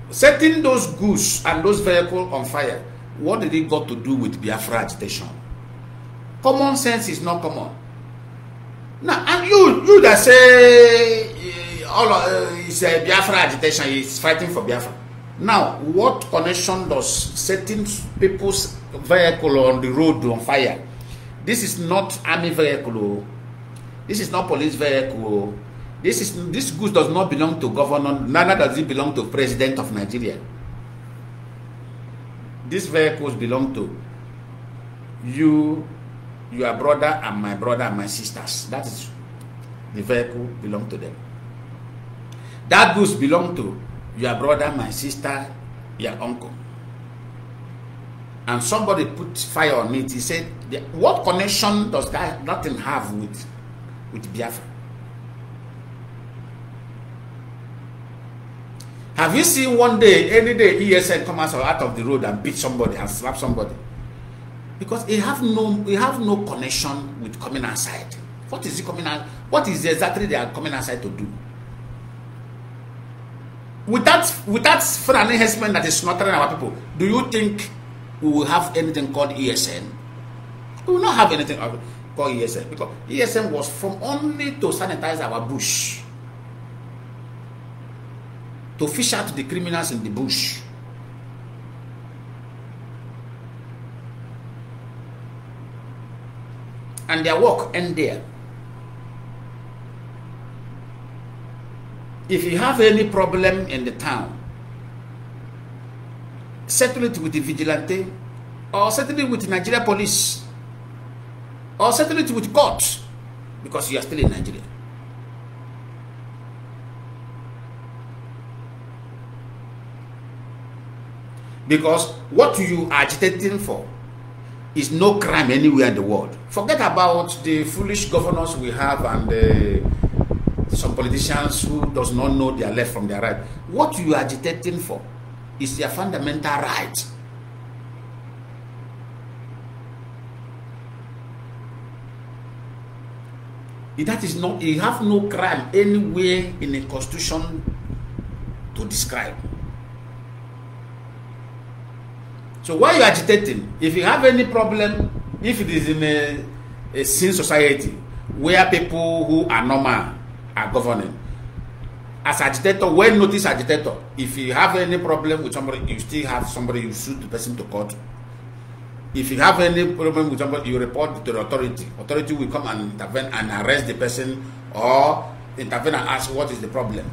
setting those goose and those vehicles on fire, what did it got to do with Biafra agitation? Common sense is not common. Now, and you, you that say uh, all uh, is a eh, Biafra agitation is fighting for Biafra. Now, what connection does setting people's vehicle on the road on fire? This is not army vehicle. Oh. This is not police vehicle. Oh. This is this goods does not belong to governor. Neither does it belong to president of Nigeria. These vehicles belong to you your brother and my brother and my sisters. That is the vehicle belong to them. That goods belong to your brother, my sister, your uncle. And somebody put fire on it. He said, what connection does that, nothing have with, with Biafra? Have you seen one day, any day, ESN come out of the road and beat somebody and slap somebody? because he have no he have no connection with coming outside what is he coming out what is exactly they are coming outside to do with that with that foreign enhancement that is smothering our people do you think we will have anything called esn we will not have anything called esn because esn was from only to sanitize our bush to fish out the criminals in the bush and their work end there. If you have any problem in the town, settle it with the vigilante or settle it with Nigeria police or settle it with court because you are still in Nigeria. Because what you are agitating for is no crime anywhere in the world. Forget about the foolish governors we have and uh, some politicians who does not know their left from their right. What you are agitating for is their fundamental right. That is not, you have no crime anywhere in the constitution to describe. So why you agitating? If you have any problem, if it is in a, a sin society where people who are normal are governing, as agitator, well notice agitator. If you have any problem with somebody, you still have somebody, you sue the person to court. If you have any problem with somebody, you report to the authority. Authority will come and intervene and arrest the person or intervene and ask what is the problem.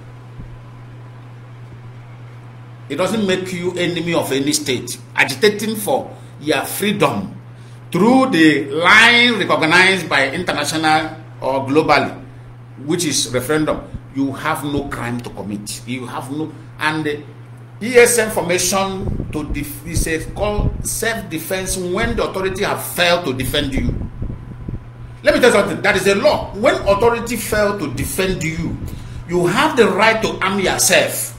It doesn't make you enemy of any state. Agitating for your freedom through the line recognized by international or globally, which is referendum, you have no crime to commit. You have no and the ESM formation to def- is self-defense when the authority have failed to defend you. Let me tell you something. That is a law. When authority fail to defend you, you have the right to arm yourself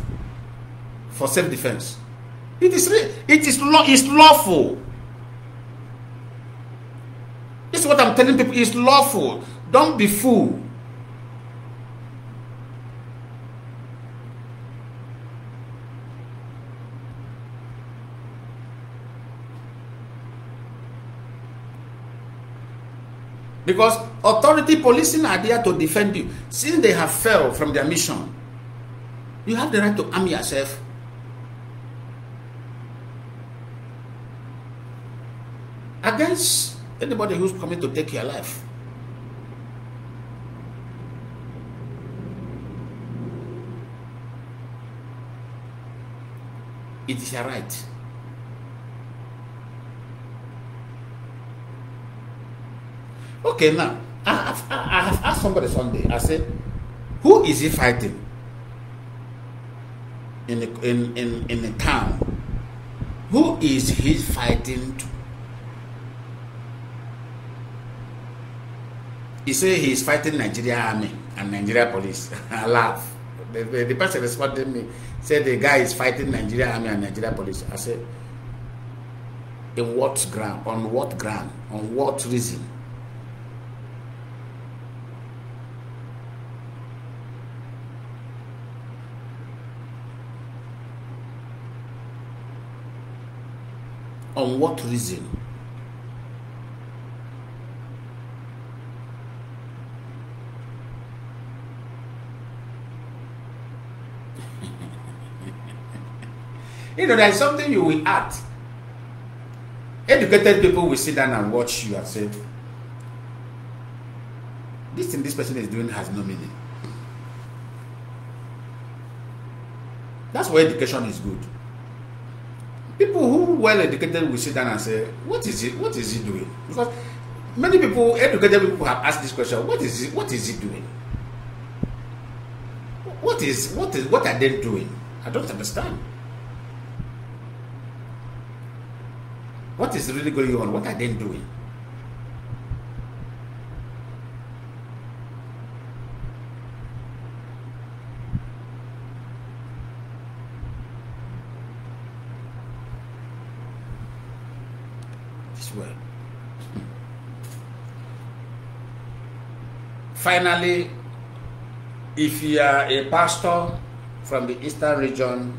for self-defense. It is it is law it's lawful. This is what I'm telling people. It's lawful. Don't be fool. Because authority policing are there to defend you. Since they have failed from their mission, you have the right to arm yourself against anybody who's coming to take your life. It is a right. Okay, now, I have, I have asked somebody Sunday, I said, who is he fighting in, the, in, in, in the town? Who is he fighting to? he say he is fighting Nigeria army and Nigeria police. I laugh. The, the, the person responding me said the guy is fighting Nigeria army and Nigeria police. I said, in what ground? On what ground? On what reason? On what reason? You know, there's something you will add. Educated people will sit down and watch you and say, this thing this person is doing has no meaning. That's why education is good. People who well educated will sit down and say, What is it? What is he doing? Because many people, educated people have asked this question, what is it? What is he doing? What is what is what are they doing? I don't understand. What is really going on? What are they doing? This well. Finally, if you are a pastor from the eastern region,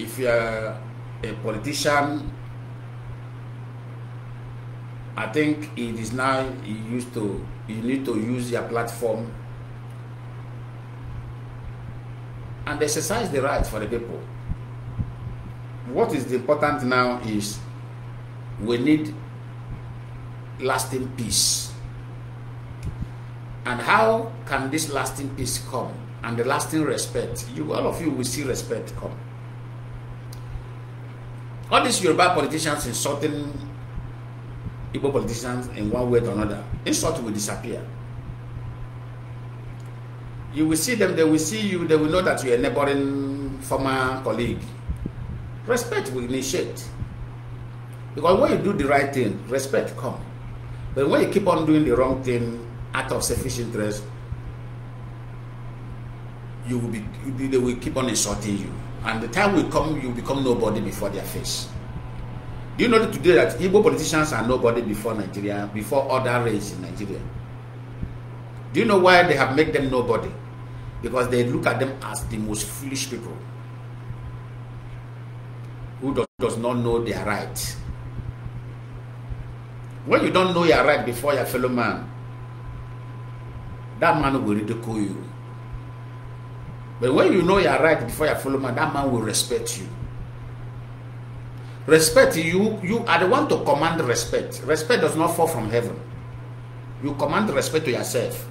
if you are a politician. I think it is now you used to you need to use your platform and exercise the rights for the people. What is important now is we need lasting peace. And how can this lasting peace come and the lasting respect? You all of you will see respect come. All these Yoruba politicians insulting Igbo politicians in one way or another, insult will disappear. You will see them, they will see you, they will know that you are a neighboring former colleague. Respect will initiate. Because when you do the right thing, respect comes. But when you keep on doing the wrong thing out of selfish interest, you will be, they will keep on insulting you. And the time will come, you become nobody before their face. Do you know that today that Igbo politicians are nobody before Nigeria, before other race in Nigeria? Do you know why they have made them nobody? Because they look at them as the most foolish people who does, does not know their right. When you don't know your right before your fellow man, that man will ridicule you. But when you know you are right before you follow man, that man will respect you. Respect you, you are the one to command respect. Respect does not fall from heaven. You command respect to yourself.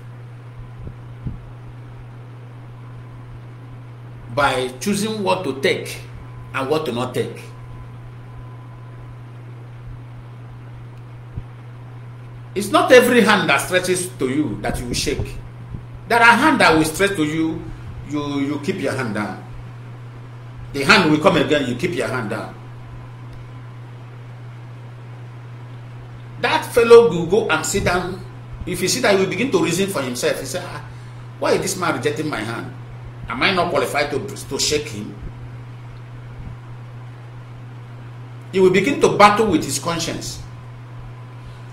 By choosing what to take and what to not take. It's not every hand that stretches to you that you will shake. There are hands that will stretch to you you you keep your hand down. The hand will come again, you keep your hand down. That fellow will go and sit down. If he sit, that, he will begin to reason for himself. He said, ah, Why is this man rejecting my hand? Am I not qualified to, to shake him? He will begin to battle with his conscience.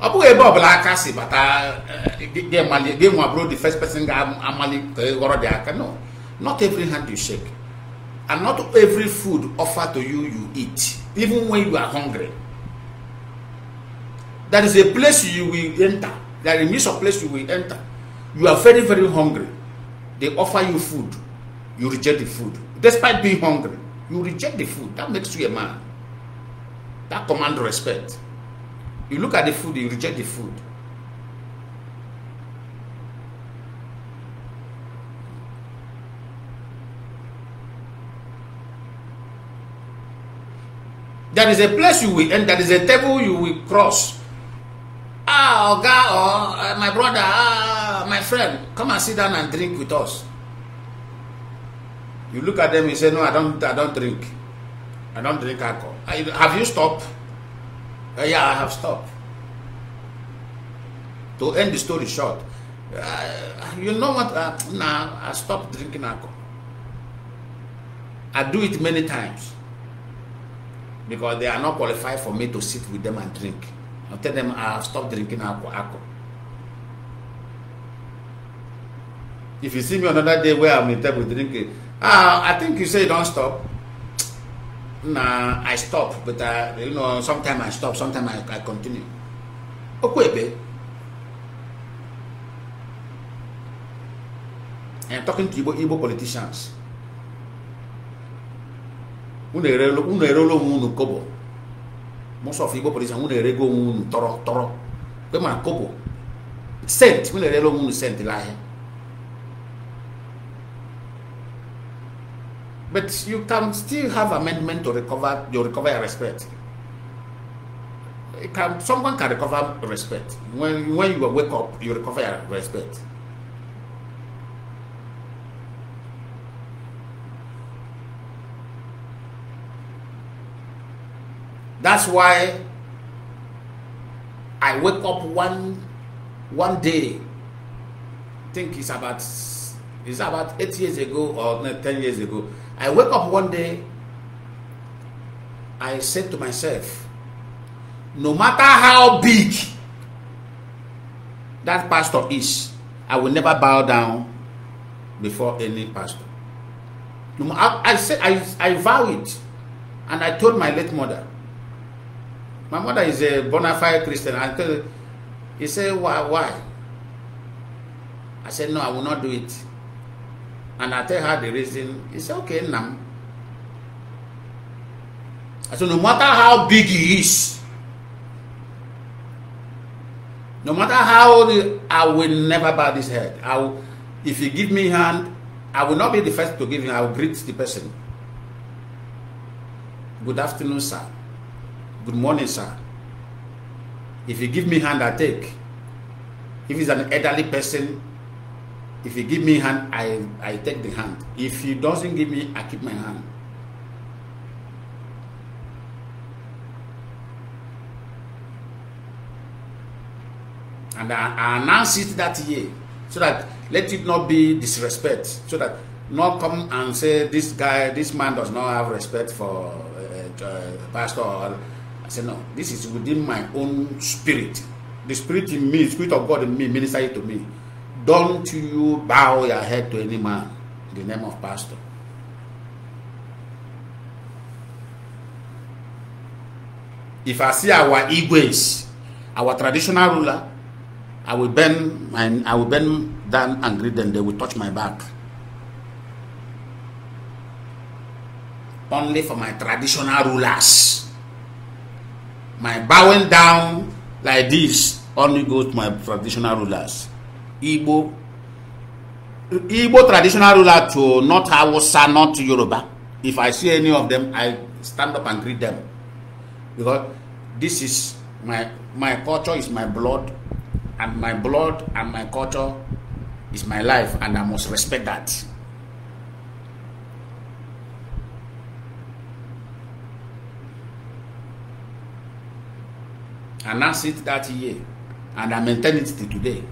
ọ bụghị ebe ọbụla aka si bata eh, gị nwa bụrụ the first person ga-amalite ghọrọ no Not every hand you shake, and not every food offered to you you eat, even when you are hungry. That is a place you will enter. That is a place you will enter. You are very, very hungry. They offer you food. You reject the food. Despite being hungry, you reject the food. That makes you a man. That command respect. You look at the food, you reject the food. There is a place you will end, there is a table you will cross. Ah, Oga, or oh, eh, my brother, ah, my friend, come and sit down and drink with us. You look at them, you say, No, I don't, I don't drink. I don't drink alcohol. I, have you stopped? Uh, yeah, I have stopped. To end the story short, uh, you know what? Uh, nah, I stopped drinking alcohol. I do it many times. because they are not qualified for me to sit with them and drink. I tell them I have ah, stopped drinking alcohol. If you see me another day where I'm in table drinking, ah, I think you say don't stop. Nah, I stop, but I, you know, sometimes I stop, sometimes I, I continue. Okay, babe. I'm talking to Igbo, Igbo politicians. kobo erego tọrọ tọrọ ma kobo sent but you can still have amendment to recover you recover your respect it can someone can recover respect when when you wake up you recover your respect That's why I wake up one one day. I think it's about it's about eight years ago or no, ten years ago. I wake up one day. I said to myself, no matter how big that pastor is, I will never bow down before any pastor. No, I, I said I, I vow it, and I told my late mother My mother is a bona fide Christian. I tell, he said, why, why? I said, no, I will not do it. And I tell her the reason. He said, okay, Nam. I said, no matter how big he is, no matter how old I will never bow this head. I will, if you give me hand, I will not be the first to give him. I will greet the person. Good afternoon, sir. Good morning, sir. If you give me hand, I take. If it's an elderly person, if you give me hand, I, I take the hand. If he doesn't give me, I keep my hand. And I, I announce it that year so that let it not be disrespect, so that not come and say this guy, this man does not have respect for uh, uh, pastor or I said, no, this is within my own spirit. The spirit in me, spirit of God in me, minister it to me. Don't you bow your head to any man in the name of pastor. If I see our Igwes, our traditional ruler, I will bend my, I will bend down and greet them. They will touch my back. Only for my traditional rulers my bowing down like this only goes to my traditional rulers igbo igbo traditional ruler to not hausa not yoruba if i see any of them i stand up and greet them because this is my my culture is my blood and my blood and my culture is my life and i must respect that. announced it that year and I maintain it till today.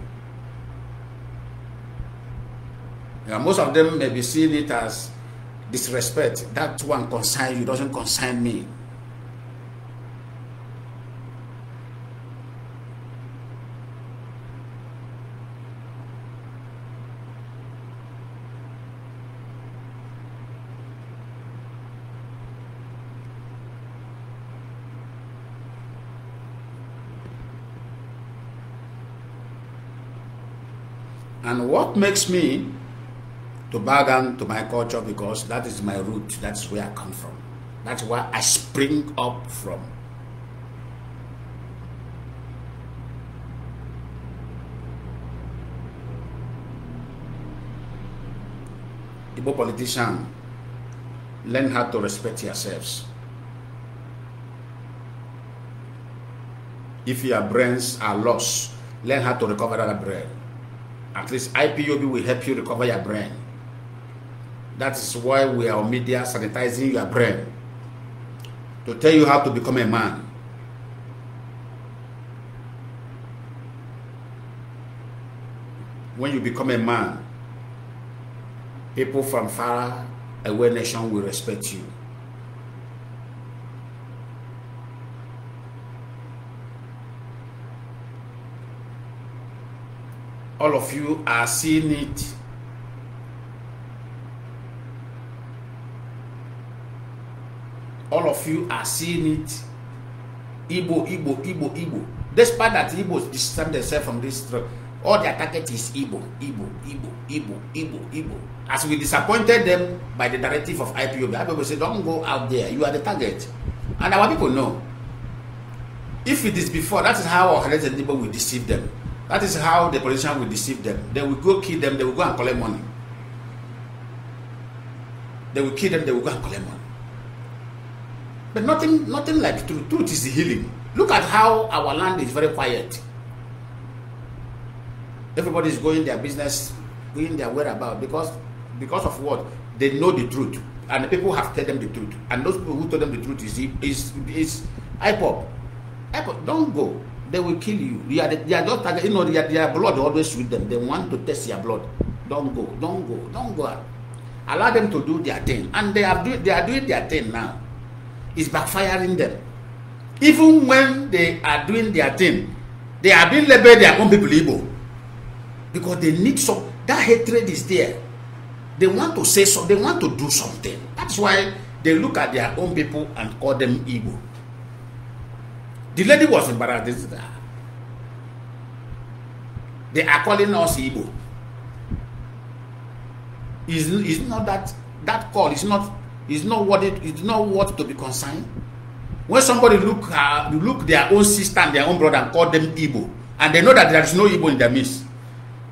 Yeah, most of them may be seeing it as disrespect. That one concern you, doesn't concern me. what makes me to bow down to my culture because that is my root, that's where I come from, that's where I spring up from. Igbo politician, learn how to respect yourselves. If your brains are lost, learn how to recover that brain. At least IPOB will help you recover your brain. That is why we are on media sanitizing your brain to tell you how to become a man. When you become a man, people from far away nation will respect you. all of you are seeing it. All of you are seeing it. Igbo, Igbo, Igbo, Igbo. Despite that Igbos distance themselves from this truck, all their target is Igbo, Igbo, Igbo, Igbo, Igbo, Igbo. As we disappointed them by the directive of IPOB, IPOB said, don't go out there, you are the target. And our people know. If it is before, that is how our Helen people will deceive them. That is how the politician will deceive them. They will go kill them, they will go and collect money. They will kill them, they will go and collect money. But nothing, nothing like truth. Truth is healing. Look at how our land is very quiet. Everybody is going their business, going their whereabouts because because of what? They know the truth. And the people have told them the truth. And those people who told them the truth is is is IPOP. IPOP, don't go. they will kill you. They are, they are just target, you know, they are, their blood always with them. They want to test your blood. Don't go, don't go, don't go. Out. Allow them to do their thing. And they are, do, they are doing their thing now. It's backfiring them. Even when they are doing their thing, they are being labeled their own people evil. Because they need some, that hatred is there. They want to say something, they want to do something. That's why they look at their own people and call them evil. The lady was embarrassed. They are calling us Igbo. Is is not that that call is not is not what it is not worth to be concerned. When somebody look uh, look their own sister and their own brother and call them Igbo, and they know that there is no Igbo in their midst,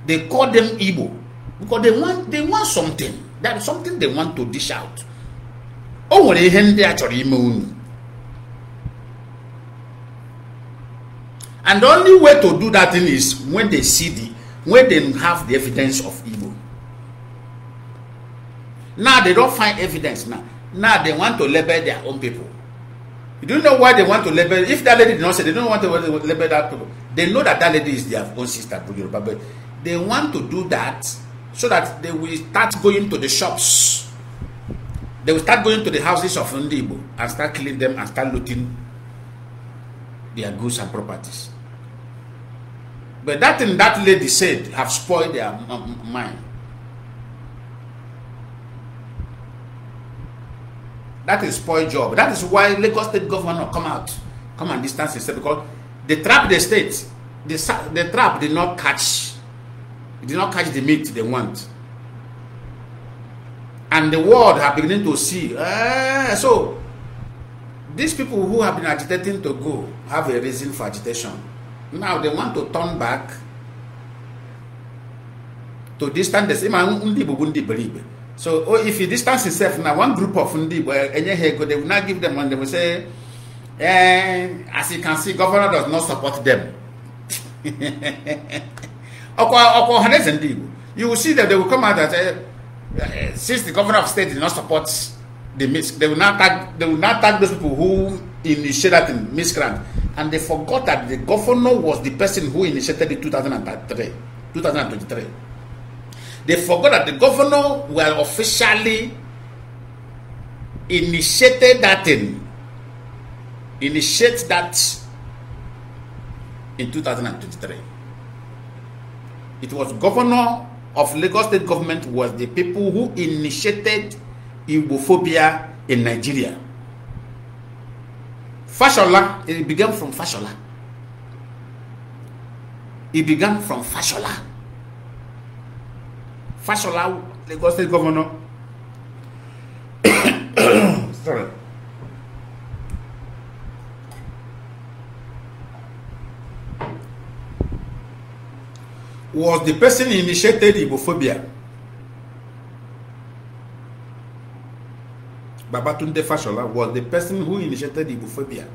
they call them Igbo because they want they want something. that something they want to dish out. O nwere ihe ndị a chọrọ ime unu. and the only way to do that thing is when they see the when they have the evidence of evil. now they don't find evidence now now they want to label their own people you don't know why they want to label if that lady did not say they don't want to label that people they know that that lady is their own sister but they want to do that so that they will start going to the shops they will start going to the houses of ndị and start killing them and start looting their goods and properties But that thing that lady said have spoiled their mind. That is spoiled job. That is why Lagos state Governor come out, come and distance himself because they trap the state. The, the trap did not catch, did not catch the meat they want. And the world have beginning to see. Uh, so, these people who have been agitating to go have a reason for agitation. Now they want to turn back to distance ima so oh, if you distance yourself now one group of ndị they will not give them money. they will say eh, as you can see governor does not support them you will see that they will come out that eh, since the governor of state did not support the mix they will not they will not tag those people who in miscreant, and they forgot that the governor was the person who initiated in 2003, 2023. They forgot that the governor were officially initiated that thing, initiate that in 2023. It was governor of Lagos state government was the people who initiated Igbophobia in Nigeria. Fashola, it began from Fashola. It began from Fashola. Fashola, Lagos State Governor. Sorry. Was the person initiated Ibophobia? Babatunde Fashola was the person who initiated Ibuphobia.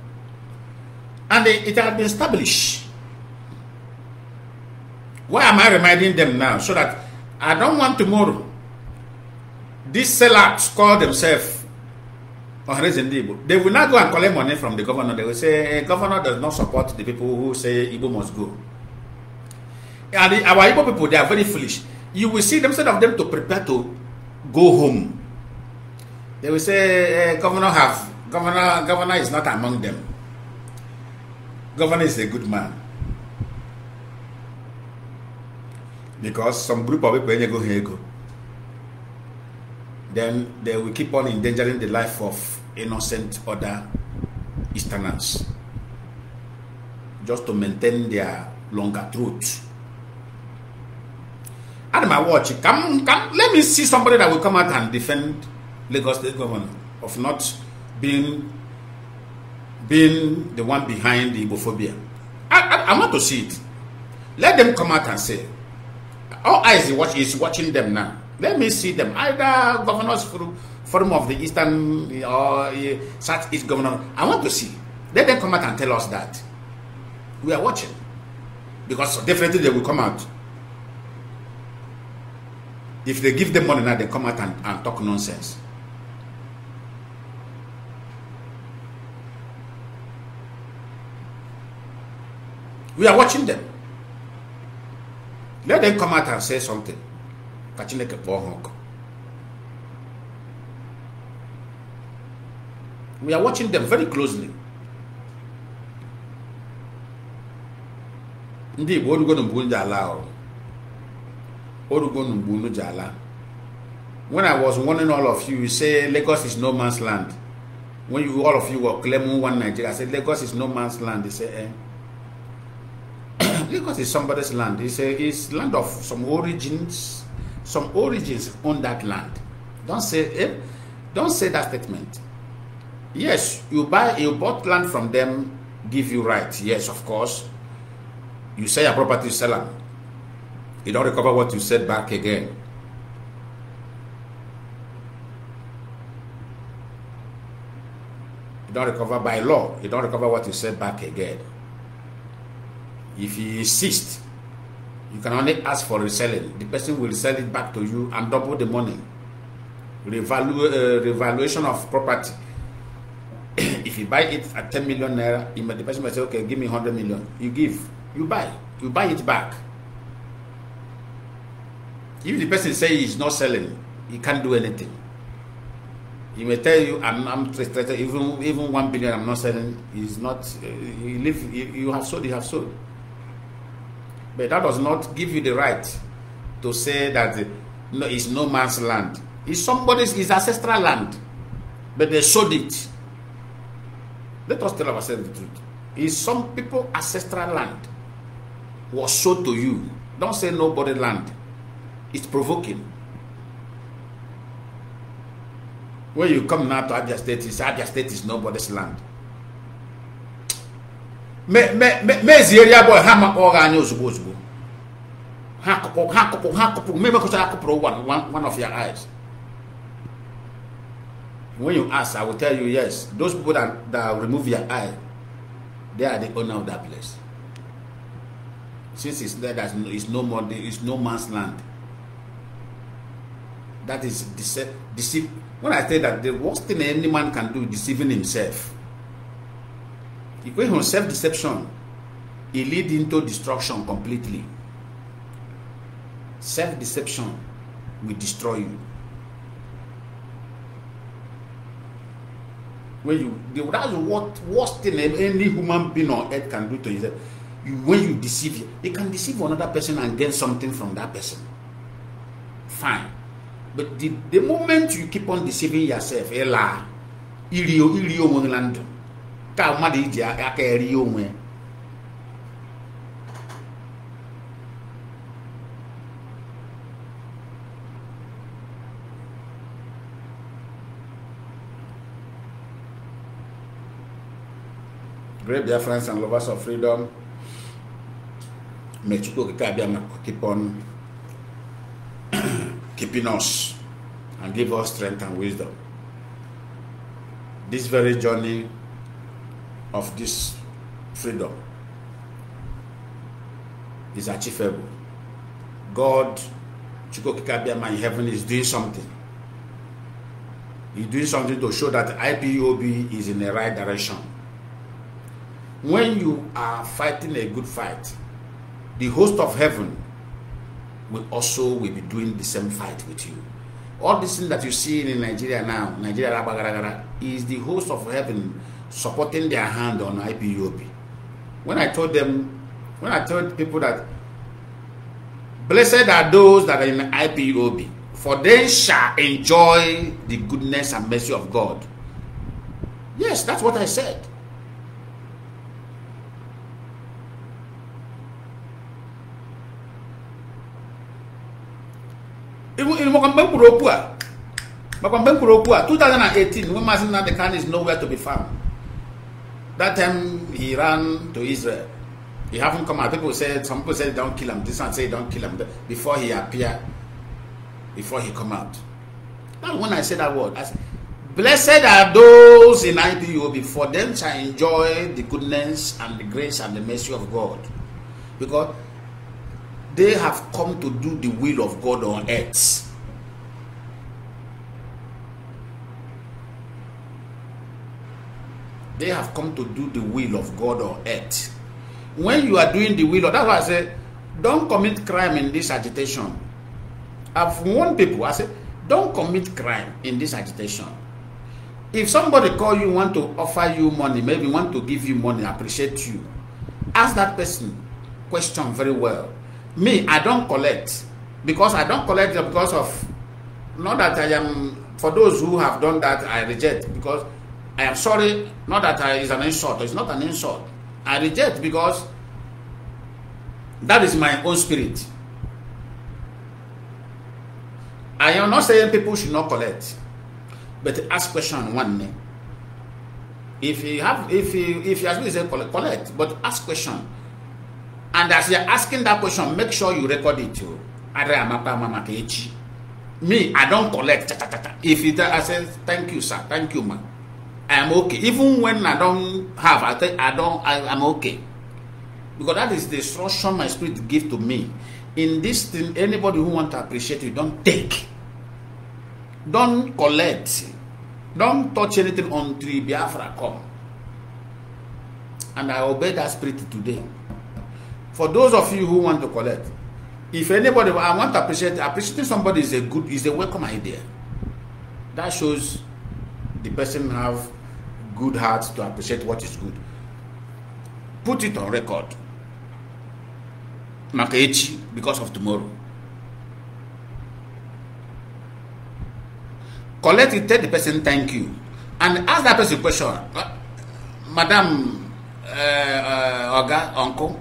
And it had been established. Why am I reminding them now? So that I don't want tomorrow these sellouts call themselves They will not go and collect money from the governor. They will say, eh, governor does not support the people who say Igbo must go. And the, our people, they are very foolish. You will see them, instead of them to prepare to go home they will say, eh, governor have, governor, governor is not among them. Governor is a good man. Because some group of people go here go. Then they will keep on endangering the life of innocent other Easterners just to maintain their longer throat. and my watch. Come, come. Let me see somebody that will come out and defend Lagos State government of not being being the one behind the Ibophobia. I, I, I want to see it. Let them come out and say. All eyes watch, is watching them now. Let me see them. Either governors from forum of the Eastern or uh, eh, Southeast governor. I want to see. Let them come out and tell us that. We are watching. Because definitely they will come out. If they give them money now, they come out and, and talk nonsense. We are watching them. Let them come out and say something. Catching like a ha ọkụ we are watching them very closely ndị Igbo orugo na mgbu ji ala ọrụ orugo na mgbu ji jala? when I was warning all of you, you say Lagos is no man's land when you all of you were claiming one Nigeria I said Lagos is no man's land they say eh Lagos is somebody's land. It's, a, it's land of some origins, some origins on that land. Don't say eh, don't say that statement. Yes, you buy you bought land from them, give you right. Yes, of course. You sell your property, seller, sell them. You don't recover what you said back again. You don't recover by law. You don't recover what you said back again. If he insists, you can only ask for reselling. The person will sell it back to you and double the money. Revalu- uh, revaluation of property. if you buy it at 10 million naira, the person might say, okay, give me 100 million. You give, you buy, you buy it back. If the person says he's not selling, he can't do anything. He may tell you, I'm, I'm even even one billion, I'm not selling. He's not. Uh, he live. you have sold. You have sold. But that does not give you the right to say that no, it's no man's land. It's somebody's, it's ancestral land. But they sold it. Let us tell ourselves the truth. It's some people ancestral land was sold to you. Don't say nobody land. It's provoking. When you come now to Abia State, it's Abia State is nobody's land. mezi eri abụọ ha makpọrọ anyị ozugbo ozugbo ha kụpụ ha kụpụ ha kụpụ mmemekọta akụpụrụ one one of your eyes when you ask i will tell you yes those people that that remove your eye they are the owner of that place since it's there that is no more there is no man's land that is deceive when i say that the worst thing any man can do is deceiving himself Equation of self-deception, it leads into destruction completely. Self-deception will destroy you. When you the, that's what worst thing any human being on earth can do to You, when you deceive, you, you can deceive another person and gain something from that person. Fine. But the, the moment you keep on deceiving yourself, ela, irio, irio, monolando. ka mmadụ iji aka eri onwe friends and lovers of freedom may Chukwu Okike keep on keeping us and give us strength and wisdom. This very journey of this freedom is achievable. God, Chukokikabiama in heaven is doing something. He's doing something to show that IPOB is in the right direction. When you are fighting a good fight, the host of heaven will also will be doing the same fight with you. All this thing that you see in Nigeria now, Nigeria is the host of heaven supporting their hand on IPOB. When I told them, when I told people that blessed are those that are in IPOB, for they shall enjoy the goodness and mercy of God. Yes, that's what I said. makwambe mkpụrụ okwu a makwambe mkpụrụ okwu a 2018 when mazin nnamdi kanu is nowhere to be found that time he ran to Israel. He haven't come out. People said, some people said, don't kill him. This one said, don't kill him. Before he appear, before he come out. Now, when I say that word, I said, blessed are those in IPOB, for them shall enjoy the goodness and the grace and the mercy of God. Because they have come to do the will of God on earth. They have come to do the will of God or earth. When you are doing the will of that's why I say, don't commit crime in this agitation. I've warned people, I say, don't commit crime in this agitation. If somebody call you, want to offer you money, maybe want to give you money, appreciate you, ask that person question very well. Me, I don't collect because I don't collect because of not that I am for those who have done that I reject because I am sorry, not that I, is an insult, it's not an insult. I reject because that is my own spirit. I am not saying people should not collect, but ask question one name. If you have, if you, if you has been collect, collect, but ask question. And as you're asking that question, make sure you record it too. Oh. Me, I don't collect. If it, I say, thank you, sir, thank you, ma'am. I am okay. Even when I don't have, I think I don't, I, I'm okay. Because that is the instruction my spirit give to me. In this thing, anybody who want to appreciate you, don't take. Don't collect. Don't touch anything until Biafra come. And I obey that spirit today. For those of you who want to collect, if anybody, I want to appreciate, appreciating somebody is a good, is a welcome idea. That shows the person have good hearts to appreciate what is good. Put it on record. Makaechi, because of tomorrow. Collect it, tell the person thank you. And ask that person question. Uh, Madam, uh, uh, Oga, Uncle,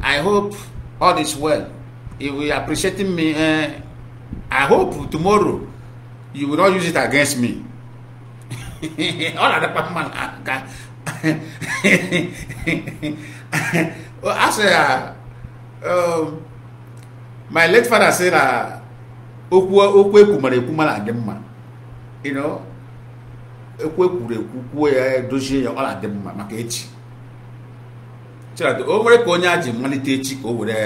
I hope all is well. If you are appreciating me, uh, I hope tomorrow you will not use it against me. ọ na-adịkwa mma n'aka a sị ya my late father say na okwu okwu ekwu mara ekwu mara adị mma ekwu ekwuru ekwu kwuo ya dozie ya ọ na-adị mma maka echi o nwere ka onye a ji malite echi ka o were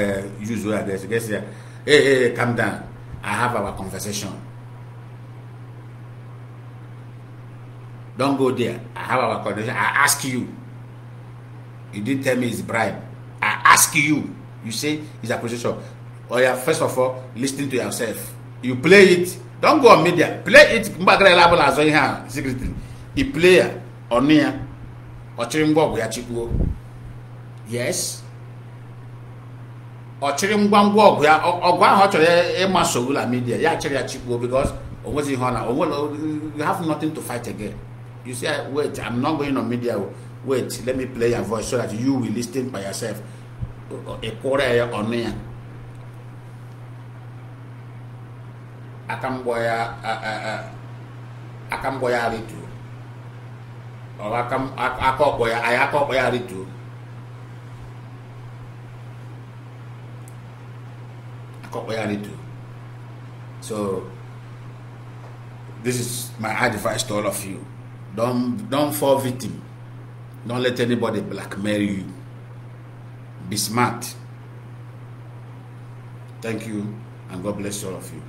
yuzo ya ga-esi ya ee ee calm down I have our conversation Don't go there. I have our condition. I ask you. You didn't tell me it's bribe. I ask you. You say it's a acquisition. Oh yeah, first of all, listening to yourself. You play it. Don't go on media. Play it. Mbagra level as well secretly. The player on here. Ochirimbo ọgwụ ya Yes. Ochirimbo ngwa ngwa ọgwụ ya ọgwụ ahụ ọ chọrọ ya ịma sowula midia ya chịrị ya chịkwuo because o nweghị ihe you have nothing to fight again. You say, wait, I'm not going on media. Wait, let me play your voice so that you will listen by yourself. A quarter on me. Akamboya Akamboya Aritu. Or Akam Akoboya Ayakoboya Aritu. Akoboya Aritu. So this is my advice to all of you. Don't don't fall victim. Don't let anybody blackmail you. Be smart. Thank you, and God bless all of you.